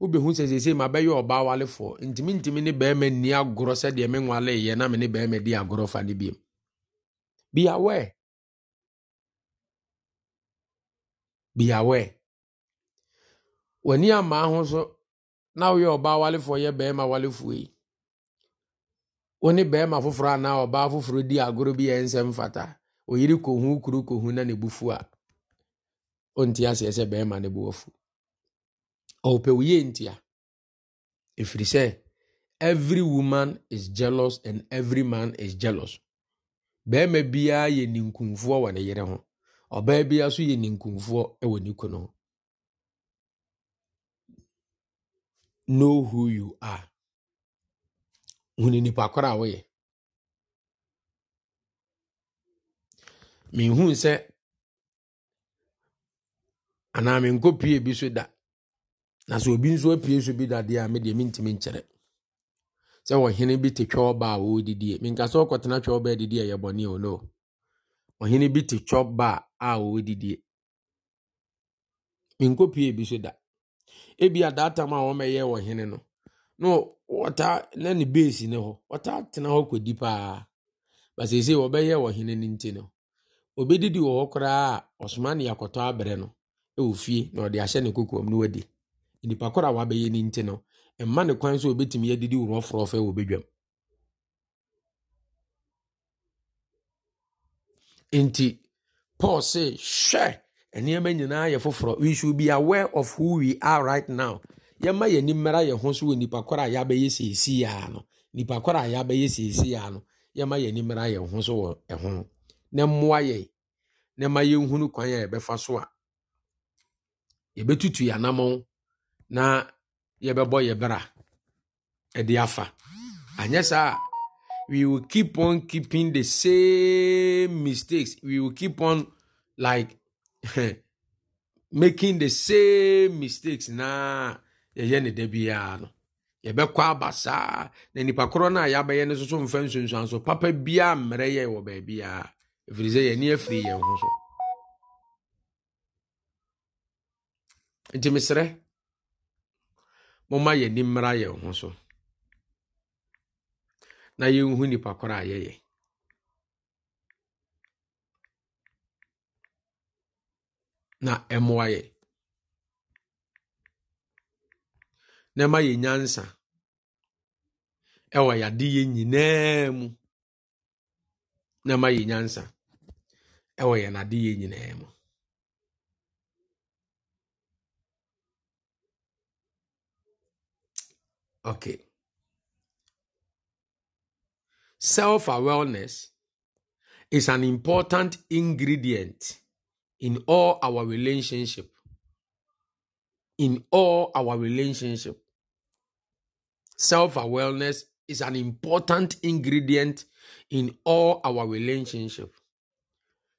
wobɛhu sɛ seesei ma bɛyɛ ɔbaa walefoɔ ntimi ntimi ne bɛrima nni agorɔ sɛdeɛ me nwaleyɛ na me ne bɛrima di agorɔ fa no biom be aware be aware w'ani amaa ho so na woyɛ ɔbaa walefoɔ yɛ bɛrima walefoɔ yi wo ne bɛrima foforɔ anaa ɔbaa foforɔ di agorɔ bi yɛ nsɛm fata oyiri kohu kuru kohu na ne bu fu a ɔnti aseɛ sɛ bɛrima ne bo afu ɔpɛ ntị a ntia ɛfiri every woman is jealous and every man is jealous bɛrima biara yɛ ninkunfoɔ wɔ ne yere ho ɔbaa biara nso yɛ ninkunfoɔ wɔ ne kunu ho know who you are hunu nipa koro a woyɛ M'ihu sɛ anaa menkɔ pie bi so da na sɛ obi nso apue so bi dadeɛ a medeɛ mentimi nkyerɛ sɛ ɔhene bi te twɛ ɔba a wɔɔdidie menka sɛ ɔkɔtena twɛ ɔba adidi ɛyɛ bɔne o no ɔhene bi te twɛ ɔba a wɔɔdidie menkɔpue bi so da ebia daatam a wɔmɛyɛ ɔhene no na wɔtaa na ne beesi ne hɔ wɔtaa tena hɔ kɔdi paa basese wɔbɛyɛ ɔhene no nti no obɛdidi wɔ hɔ koraa a ɔsoma ne akɔtɔ abrɛ no ɛwɔ fie na ɔde ahyɛ ne kokoam no wadi nipa koro a wabɛyɛ ne nti no mma ne kwan sɛ obɛtumi adidi worɔforɔfɛ wɔ bɛdwam nti paul say hwɛ nneɛma nyinaa yɛ foforɔ we should be aware of who we are right now yɛma yɛn ani mmara yɛn ho so wɔ nipa koro a yɛabɛyɛ seesii aa no nipa koro a yɛabɛyɛ seesii aa no yɛma yɛn ani mmara yɛn ho so wɔ ɛho na mmoa yɛn na ma yɛnhunu kwan a yɛbɛfa so a yɛbɛtutu yɛn anamɔn na yɛbɛbɔ yɛ bra ɛde afa anyɛ saa we will keep on keeping the same mistakes we will keep on like making the same mistakes na yɛyɛ ne da biara no yɛbɛkɔ aba saa na nipa korɔ no a yɛabɛyɛ no soso mfa nsonsuan so papa bia mmerɛ yɛ wɔ baabiara ɛfiri sɛ yɛne afiri yɛn ho so nti meserɛ momma ni mmara yɛn ho so na yɛnhu nipa koro a yɛyɛ na ɛmmoa yɛ na ɛma yɛ nyansa ɛwɔ yɛade yɛ nyinaa mu na ɛma yɛ nyansa ɛwɔ yɛn ade yɛ nyinaa mu Okay. Self awareness is an important ingredient in all our relationship. In all our relationship. Self awareness is an important ingredient in all our relationship.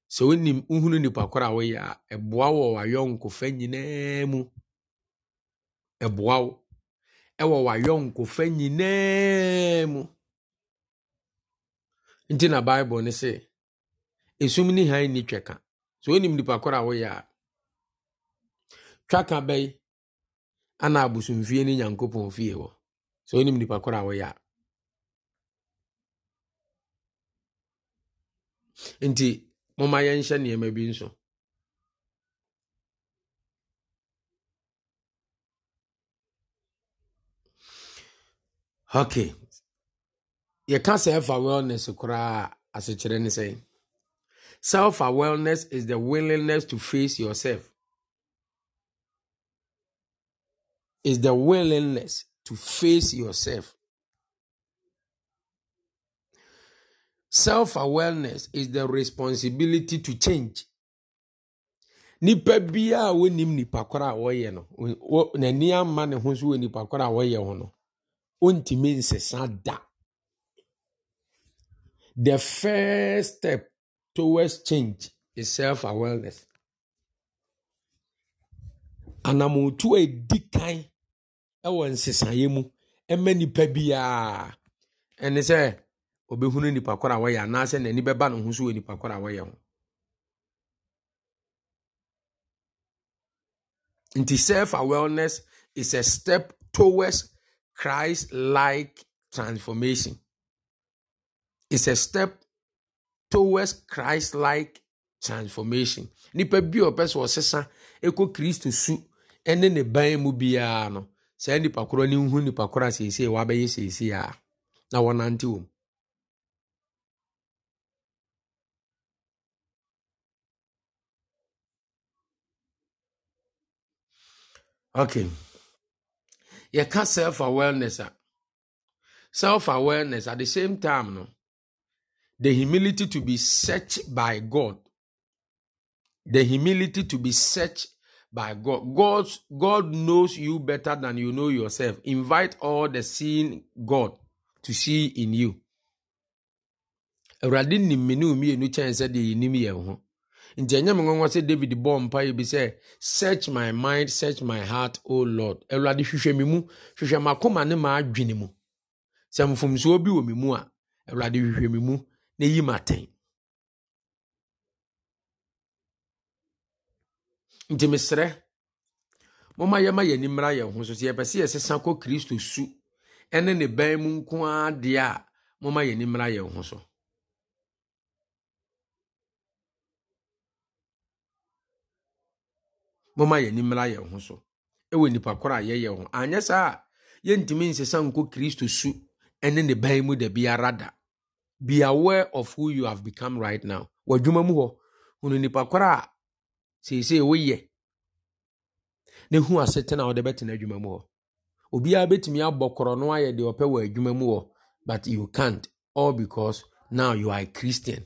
So when wohunu nipa koro a woyɛ a ɛboa wo wɔ wayɔnkofa mu ɛboa ɛwɔ w'ayɔnkofa nyinaa mu nti na bible ne sɛ esum ne han ni twɛka sɛ onim nipa koro a woyɛ a twaka bɛyi ana abosomfie ne nyankopɔn fie hɔ sɛ onim nipa koro a woyɛ a nti momma yɛnhyɛ nneɛma bi nso okay say self awareness koraa asekyerɛ ne say. self awareness is the willingness to face yourself is the willingness to face yourself self awareness is the responsibility to change nipa biara wonim nipa koro a wɔyɛ no n'ani ama ho so nipa ho no ontumi nsesa da the first step towards change is self awareness anamotu a edi kan wɔ nsesaeɛ mu ma nipa biara ɛne sɛ obɛhunu nipa koro a wɔyɛ anaasɛ n'ani bɛba ne ho so wɔ nipa koro a wɔyɛ ho nti self awareness is a step towards Christ like transformation. It's a step towards Christ like transformation. Nipa bi a ɔpɛ sɛ ɔsesa ekɔ su ɛne ne ban mu biara no, saa nipa korɔ ne nhu nipa korɔ a wa wabɛyɛ seesei a na wɔnante wɔm. Okay. yɛka self awareness a self awareness at the same time no the humility to be searched by god the humility to be searched by god god god knows you better than you know yourself invite all the seeing god to see in you nti ɛnyɛ me nwanwa sɛ david bɔɔ mpa yi bi sɛ search my mind search my heart o oh lord awurade hwehwɛ me mu hwehwɛ m'akoma ne m'adwene mu sɛ mfomsoɔ bi wɔ me mu a awurade hwehwɛ me mu na yi m'atɛn nti mesrɛ momma yɛma yɛn ani mmra yɛn ho so sɛ yɛpɛ sɛ yɛsesa kɔ kristo su ɛne ne bɛn mu nko ara deɛ a momma yɛn ani mmra yɛn ho so momma yɛn ani mmra yɛn ho so ɛwɔ nipa korɔ a yɛyɛ ho anyɛ saa a yɛntumi nsesa nkɔ kristo su ɛne ne ban mu da biara be aware of who you have become right now w'adwuma mu hɔ hunu nipa korɔ a seesei woyɛ na hu asetena a wɔde bɛtena adwuma mu hɔ obiara bɛtumi abɔ korɔ no ayɛ deɛ ɔpɛ wɔ adwuma mu hɔ but you can't all because now you are a christian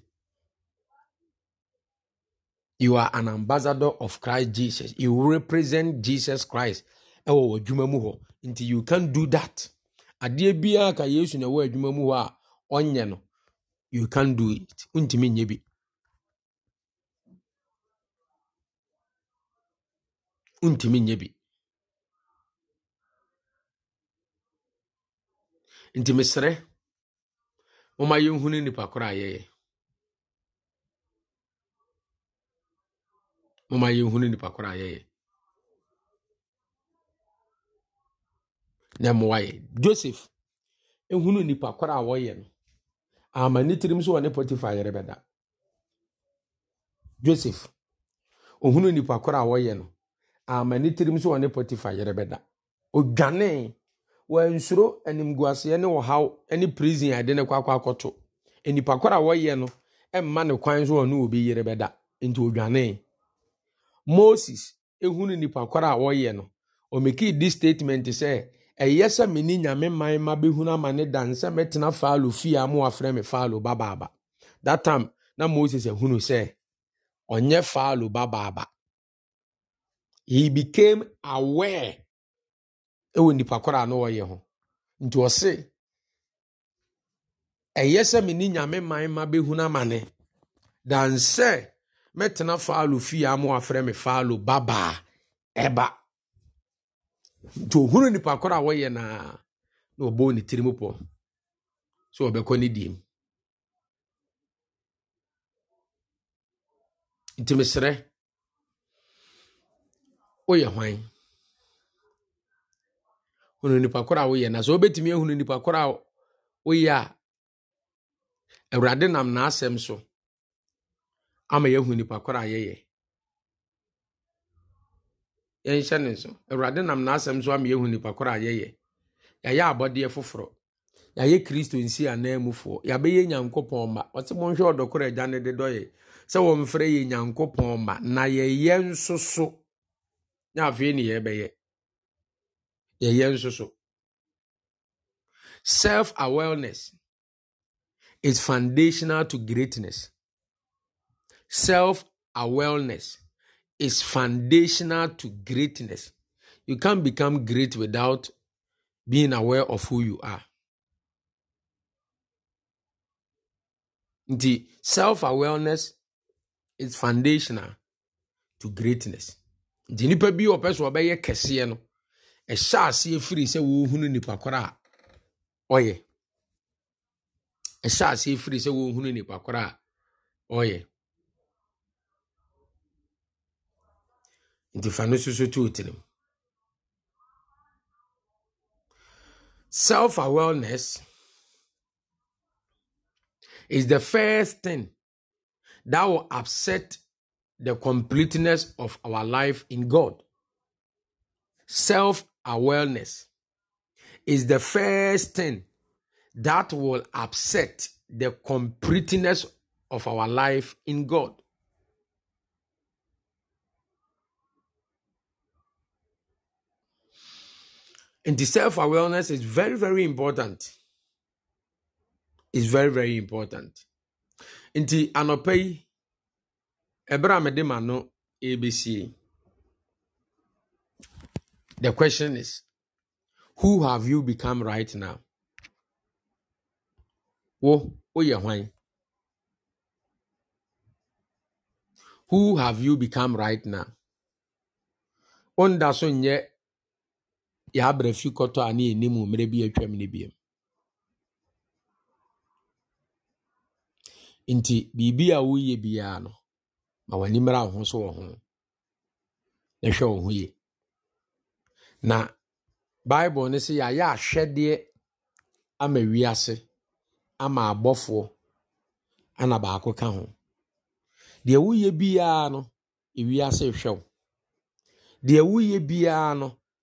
you are an ambassador of christ jesus you represent jesus christ ɛwɔ wɔ adwuma mu hɔ nti you can do that adeɛ biara ka yesu na ɛwɔ adwuma mu hɔ a ɔnyɛ no you can do it ntumi nyɛ bi ntumi nyɛ bi nti mesrɛ moma yɛnhunu nipa korɔ yɛyɛ mama yɛhunu nipa korɔ a yɛyɛ na mmoa yɛ joseph ehunu nipa korɔ a wɔyɛ no ama ne tirim so wɔ ne potifa yɛrɛ bɛda joseph ohunu nipa korɔ a wɔyɛ no ama ne tirim so wɔ ne potifa yɛrɛ bɛda odwanee wansuro animguaseɛ ne ɔhaw ne prison a yɛde ne kɔ akɔ akɔto nipa korɔ a wɔyɛ no ɛmma ne kwan so wɔ ne wɔ bi yɛrɛ bɛda nti odwanee. moses ehunu nipakwara a wɔyɛ no omekii di statement sɛ ɛyɛ sɛ me nyame man ma bɛhunu ama ne dan sɛ mɛtena faalo fie a mo afrɛ me faalo babaaba that time na moses ehunu sɛ ɔnyɛ faalo babaaba he became aware ɛwɔ nipakwara a no wɔyɛ ho nti ɔse ɛyɛ sɛ nyame man ma bɛhunu ama ne mɛtena faalo fie a ma wafrɛ me faalo babaa ɛba nti ohunu nipa koro a wɔyɛ naa na ɔbɔ ne tirim pɔ sɛ ɔbɛkɔ ne diem nti mesrɛ woyɛ hwan hunu nipa koro a woyɛ na sɛ wobɛtumi ahunu nipa koro a woyɛ a awurade nam n'asɛm so ama yɛahu nnipakorɔ a yɛyɛ yɛnhyɛ ne nso awurade nam n'asɛm nso ama hu yɛahu nnipakorɔ a yɛyɛ yɛayɛ abɔdeɛ foforɔ yɛayɛ kristo nsi anaa mufoɔ yɛabɛyɛ nyankopɔn ma ɔte monhwɛ ɔdɔkorɔ agya ne de dɔyɛ sɛ wɔmfrɛ yɛ nyankopɔn ma na yɛyɛ nso so na afei ne yɛbɛyɛ yɛyɛ nso so self awareness is foundational to greatness Self awareness is foundational to greatness. You can't become great without being aware of who you are. The self awareness is foundational to greatness. The nipa bi ɔpɛ so ɔbɛyɛ kɛseɛ no, E aseɛ firi sɛ wɔhunu nipa korɔ a ɔyɛ. Ɛhyɛ aseɛ firi sɛ wɔhunu nipa oye. a ɔyɛ. The fa no susu tu self awareness is the first thing that will upset the completeness of our life in God. Self awareness is the first thing that will upset the completeness of our life in God. And the self awareness is very, very important. It's very, very important. In the Anopei, Abraham a ABC, The question is, who have you become right now? Who have you become right now? yabere fi kɔtɔ a ne yɛnim wɔ bi a atwam no biam nti biribi a woyɛ biara no ma w'ani mmra wo ho so wɔ ho na hwɛ wo ho yie na bible no sɛ yɛayɛ ahwɛdeɛ ama wiase ama abɔfoɔ ana baako ka ho deɛ woyɛ biara no ewiase hwɛ wo deɛ woyɛ biara no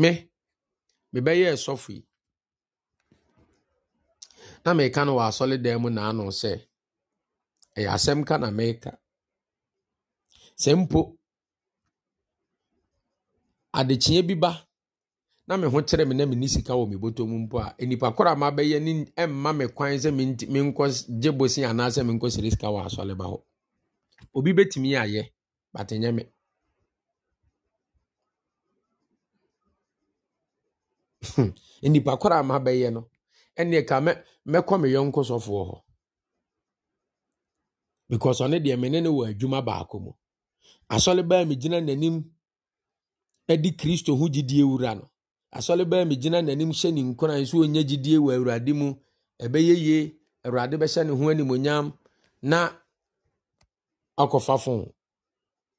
me mebɛyɛ sɔfo yi na meka no wɔ asɔredan mu naano sɛ ɛyɛ asɛm ka na meka sɛ mpo adekyeɛ bi ba na me ho kyerɛ me na me ni sika wɔ me bɔtɔ mu mpo a nipa koro a mabɛyɛ ne ɛmma me kwan sɛ menkɔ gye bosi anaasɛ menkɔ sere sika wɔ asɔre ba hɔ obi bɛtumi ayɛ batɛnyɛ me Hmm. nnipa koraa ma mabɛyɛ no ɛnneɛ ka mɛ mɛkɔ me yɔnko sɔfoɔ hɔ because ɔne deɛ me ne wɔ adwuma baako mu asɔle baa me gyina n'anim ɛdi kristo ho gyidie wura no asɔle baa me gyina n'anim hyɛ ne nkora nso ɔnya gyidie wɔ awurade mu ɛbɛyɛ yie awurade bɛhyɛ ne ho animonyam na akɔfa fon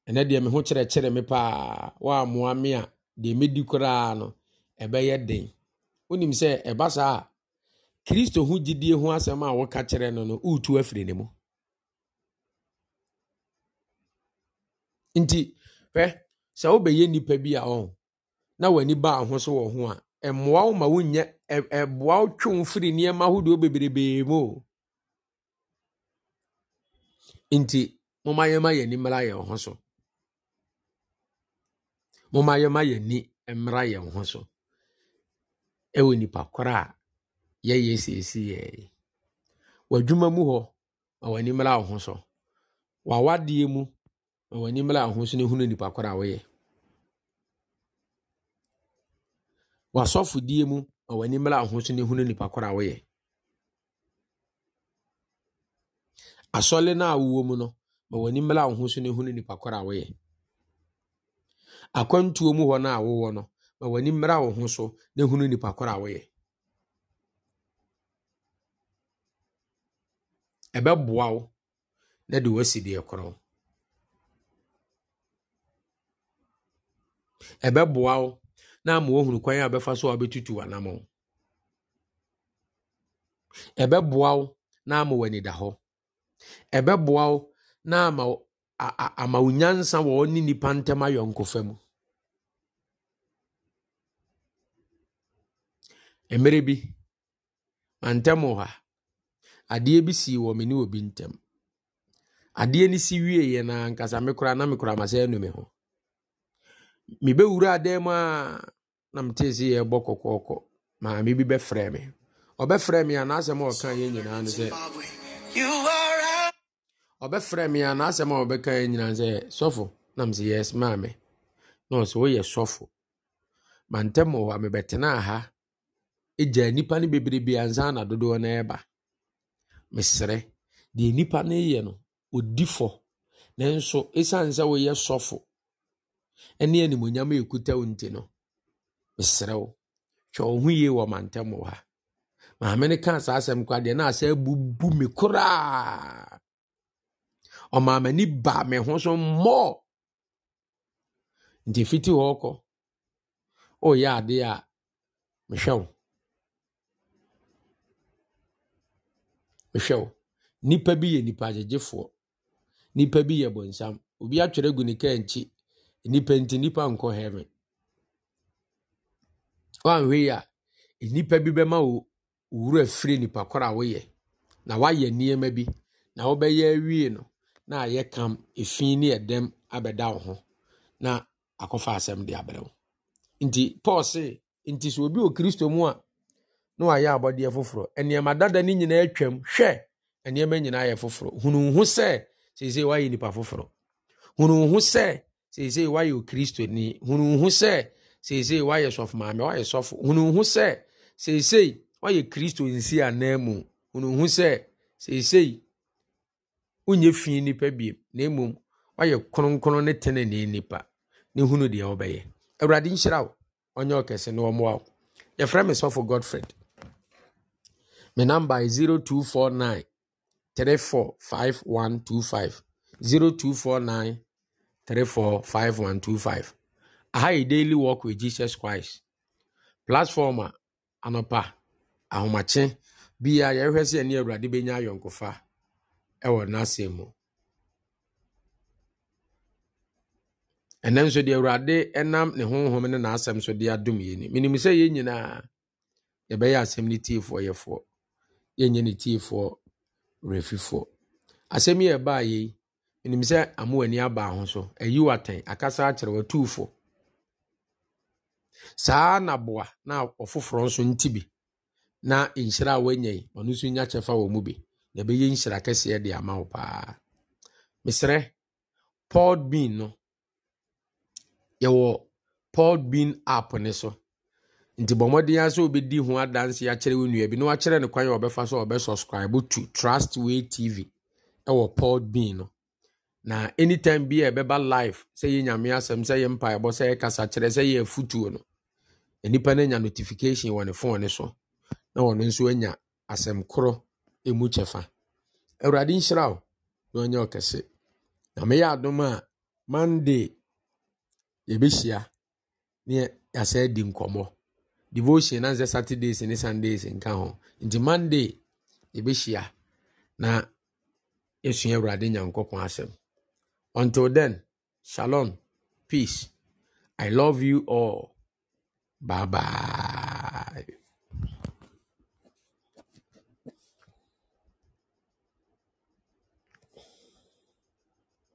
ɛnɛ deɛ me ho kyerɛkyerɛ me paa wɔammoa me a deɛ mɛdi koraa no ɛbɛyɛ den wonim sɛ ɛba saa a kristo ho gyidie ho asɛm a woka kyerɛ no no woretu afiri ne mu nti hwɛ sɛ wobɛyɛ nnipa bi a ɔn na w'ani ba ho so wɔ ho a ɛmmoa wo ma wonyɛ ɛboa wo twe wo firi nneɛma ahodoɔ bebrebee mu o nti momma yɛma yɛni mmra yɛn ho so momma yɛma yɛni mmra yɛn ho so ɛwɔ nipa korɔ a yɛyɛ seesi yɛɛ w'adwuma mu hɔ ma w'ani mmra wo ho so w'awadeɛ mu ma w'ani mmra wo ho so na ehunu nipa korɔ a wɔyɛ w'asɔfodie mu ma w'ani mmra wo ho so na ehunu nipa korɔ a wɔyɛ asɔle no a wowɔ mu no ma w'ani mmra wo ho so na ehunu nipa korɔ a wɔyɛ akwantuo mu hɔ no a wowɔ no. ma w'ani mmra wo ho so na hunu nipa koro a woyɛ ɛbɛboa wo na de wasi deɛ korɔ ɛbɛboa wo na ama wohunu kwan a bɛfa so a wobɛtutu w'anam ɛbɛboa wo na ama w'ani da hɔ ɛbɛboa wo na ama wo nyansa wɔ ne nipa ntam mu Mmerɛ bi, mantam wɔ ha, adeɛ bi sii wɔ me ne obi ntam. Adeɛ no si wieeɛ no ara ankasa me koraa na mekura m'asa anu me ho. Mebɛwuraa dan mu a na metee sɛ yɛrebɔ kɔkɔɔkɔ. Maame bi bɛfrɛɛ me. Ɔbɛfrɛɛ me a n'asɛm a ɔka yɛ nyinaa ne sɛ ɔbɛfrɛɛ me a n'asɛm a ɔbɛka yɛ nyinaa sɛ sɔfo nam sɛ yes maame na ɔsɛ woyɛ sɔfo mantam wɔ hɔ a ha gyaa nnipa no bi ansa na dodoɔ no reba. Mesrɛ, deɛ nnipa no reyɛ no, ɔdi fɔ, nanso ɛsiane sɛ woyɛ sɔfo ne animonyam a ɛkuta wo nti no, mesrɛ wo, hwɛ wo ho yie wɔ mantam wɔ ha. Maame no kaa saa asɛm kwa deɛ na asɛ bubu me koraa. Ɔmaa m'ani baa me ho so mmɔɔ. Nti fiti hɔ kɔ, ɔreyɛ adeɛ a mehwɛ wo. hwɛ wo nnipa bi yɛ nipa agyegyefoɔ nnipa bi yɛ bɔnsam obi atwerɛ gu ne kaa nkyi nnipa nti nnipa nkɔ heaven woanhwɛ yi a nnipa bi bɛma wo wura firi nipa koro a woyɛ na woayɛ nneɛma bi na wobɛyɛ awie no na ayɛ kam efi ne ɛdɛm abɛda wo ho na akɔfa asɛm de abrɛ wo nti paul se nti sɛ obi wɔ kristo mu a na wayɛ abɔdeɛ foforɔ nneɛma dada no nyinaa atwam hwɛ nneɛma nyinaa yɛ foforɔ hunuhu sɛ seesei wayɛ nipa foforɔ hunuhu sɛ seesei wayɛ hunu hunuhu sɛ seesei wayɛ maame wayɛ sɔfo hunuhu sɛ seesei wayɛ kristo nsi anan mu hunuhu sɛ seesei wonyɛ fi nipa bie na wayɛ kronkron ne nipa ne hunu deɛ wobɛyɛ awurade nhyira wo ɔnyɛ ɔkɛse na me number is 0249 345125 0249 345125 aha yɛ daily walk with jesus christ platform a anɔpa ahomakye bia yɛhwɛ sɛ ɛne awurade bɛnya ayɔnkofa ɛwɔ n'asɛm mu ɛnɛ nso deɛ awurade ɛnam ne honhom ne n'asɛm so de adom yɛ ni menim sɛ yɛn nyinaa yɛbɛyɛ asɛm no tiefoɔ yɛfoɔ yɛnyɛ ne tiefoɔ refifoɔ asɛm yi a ɛbaa yɛ yi menim sɛ amoa ani abaa ho so ayi watɛn akasa akyerɛ watuufo saa naboa na ɔfoforɔ nso nti bi na nhyira a wanya yi ɔno nso nya kyɛfa wɔ mu bi na ɛbɛyɛ nhyira kɛseɛ de ama wo paa mesrɛ paul bean no yɛwɔ paul bean app ne so nti bɔ mmɔden a sɛ wobɛdi ho adanse akyerɛ wo nnua bi na wakyerɛ no kwan a wɔbɛfa so a wɔbɛsubscribe to trustway tv ɛwɔ podbean no na anytime bi a ɛbɛba live sɛ yɛ nyame asɛm sɛ yɛ mpaebɔ sɛ yɛ kasa kyerɛ sɛ yɛ afutuo no nnipa no anya notification wɔ ne fone so na wɔno nso anya asɛm korɔ mu kyɛfa awurade nhyira wo na ɔnyɛ ɔkɛse na meyɛ adom a monday yɛbɛhyia ne yɛasɛ di nkɔmmɔ devotion na sɛ saturdays ne sundays nka ho nti monday yɛbɛhyia na yɛsua awurade nyankopɔn asɛm until then shalom peace i love you all bye bye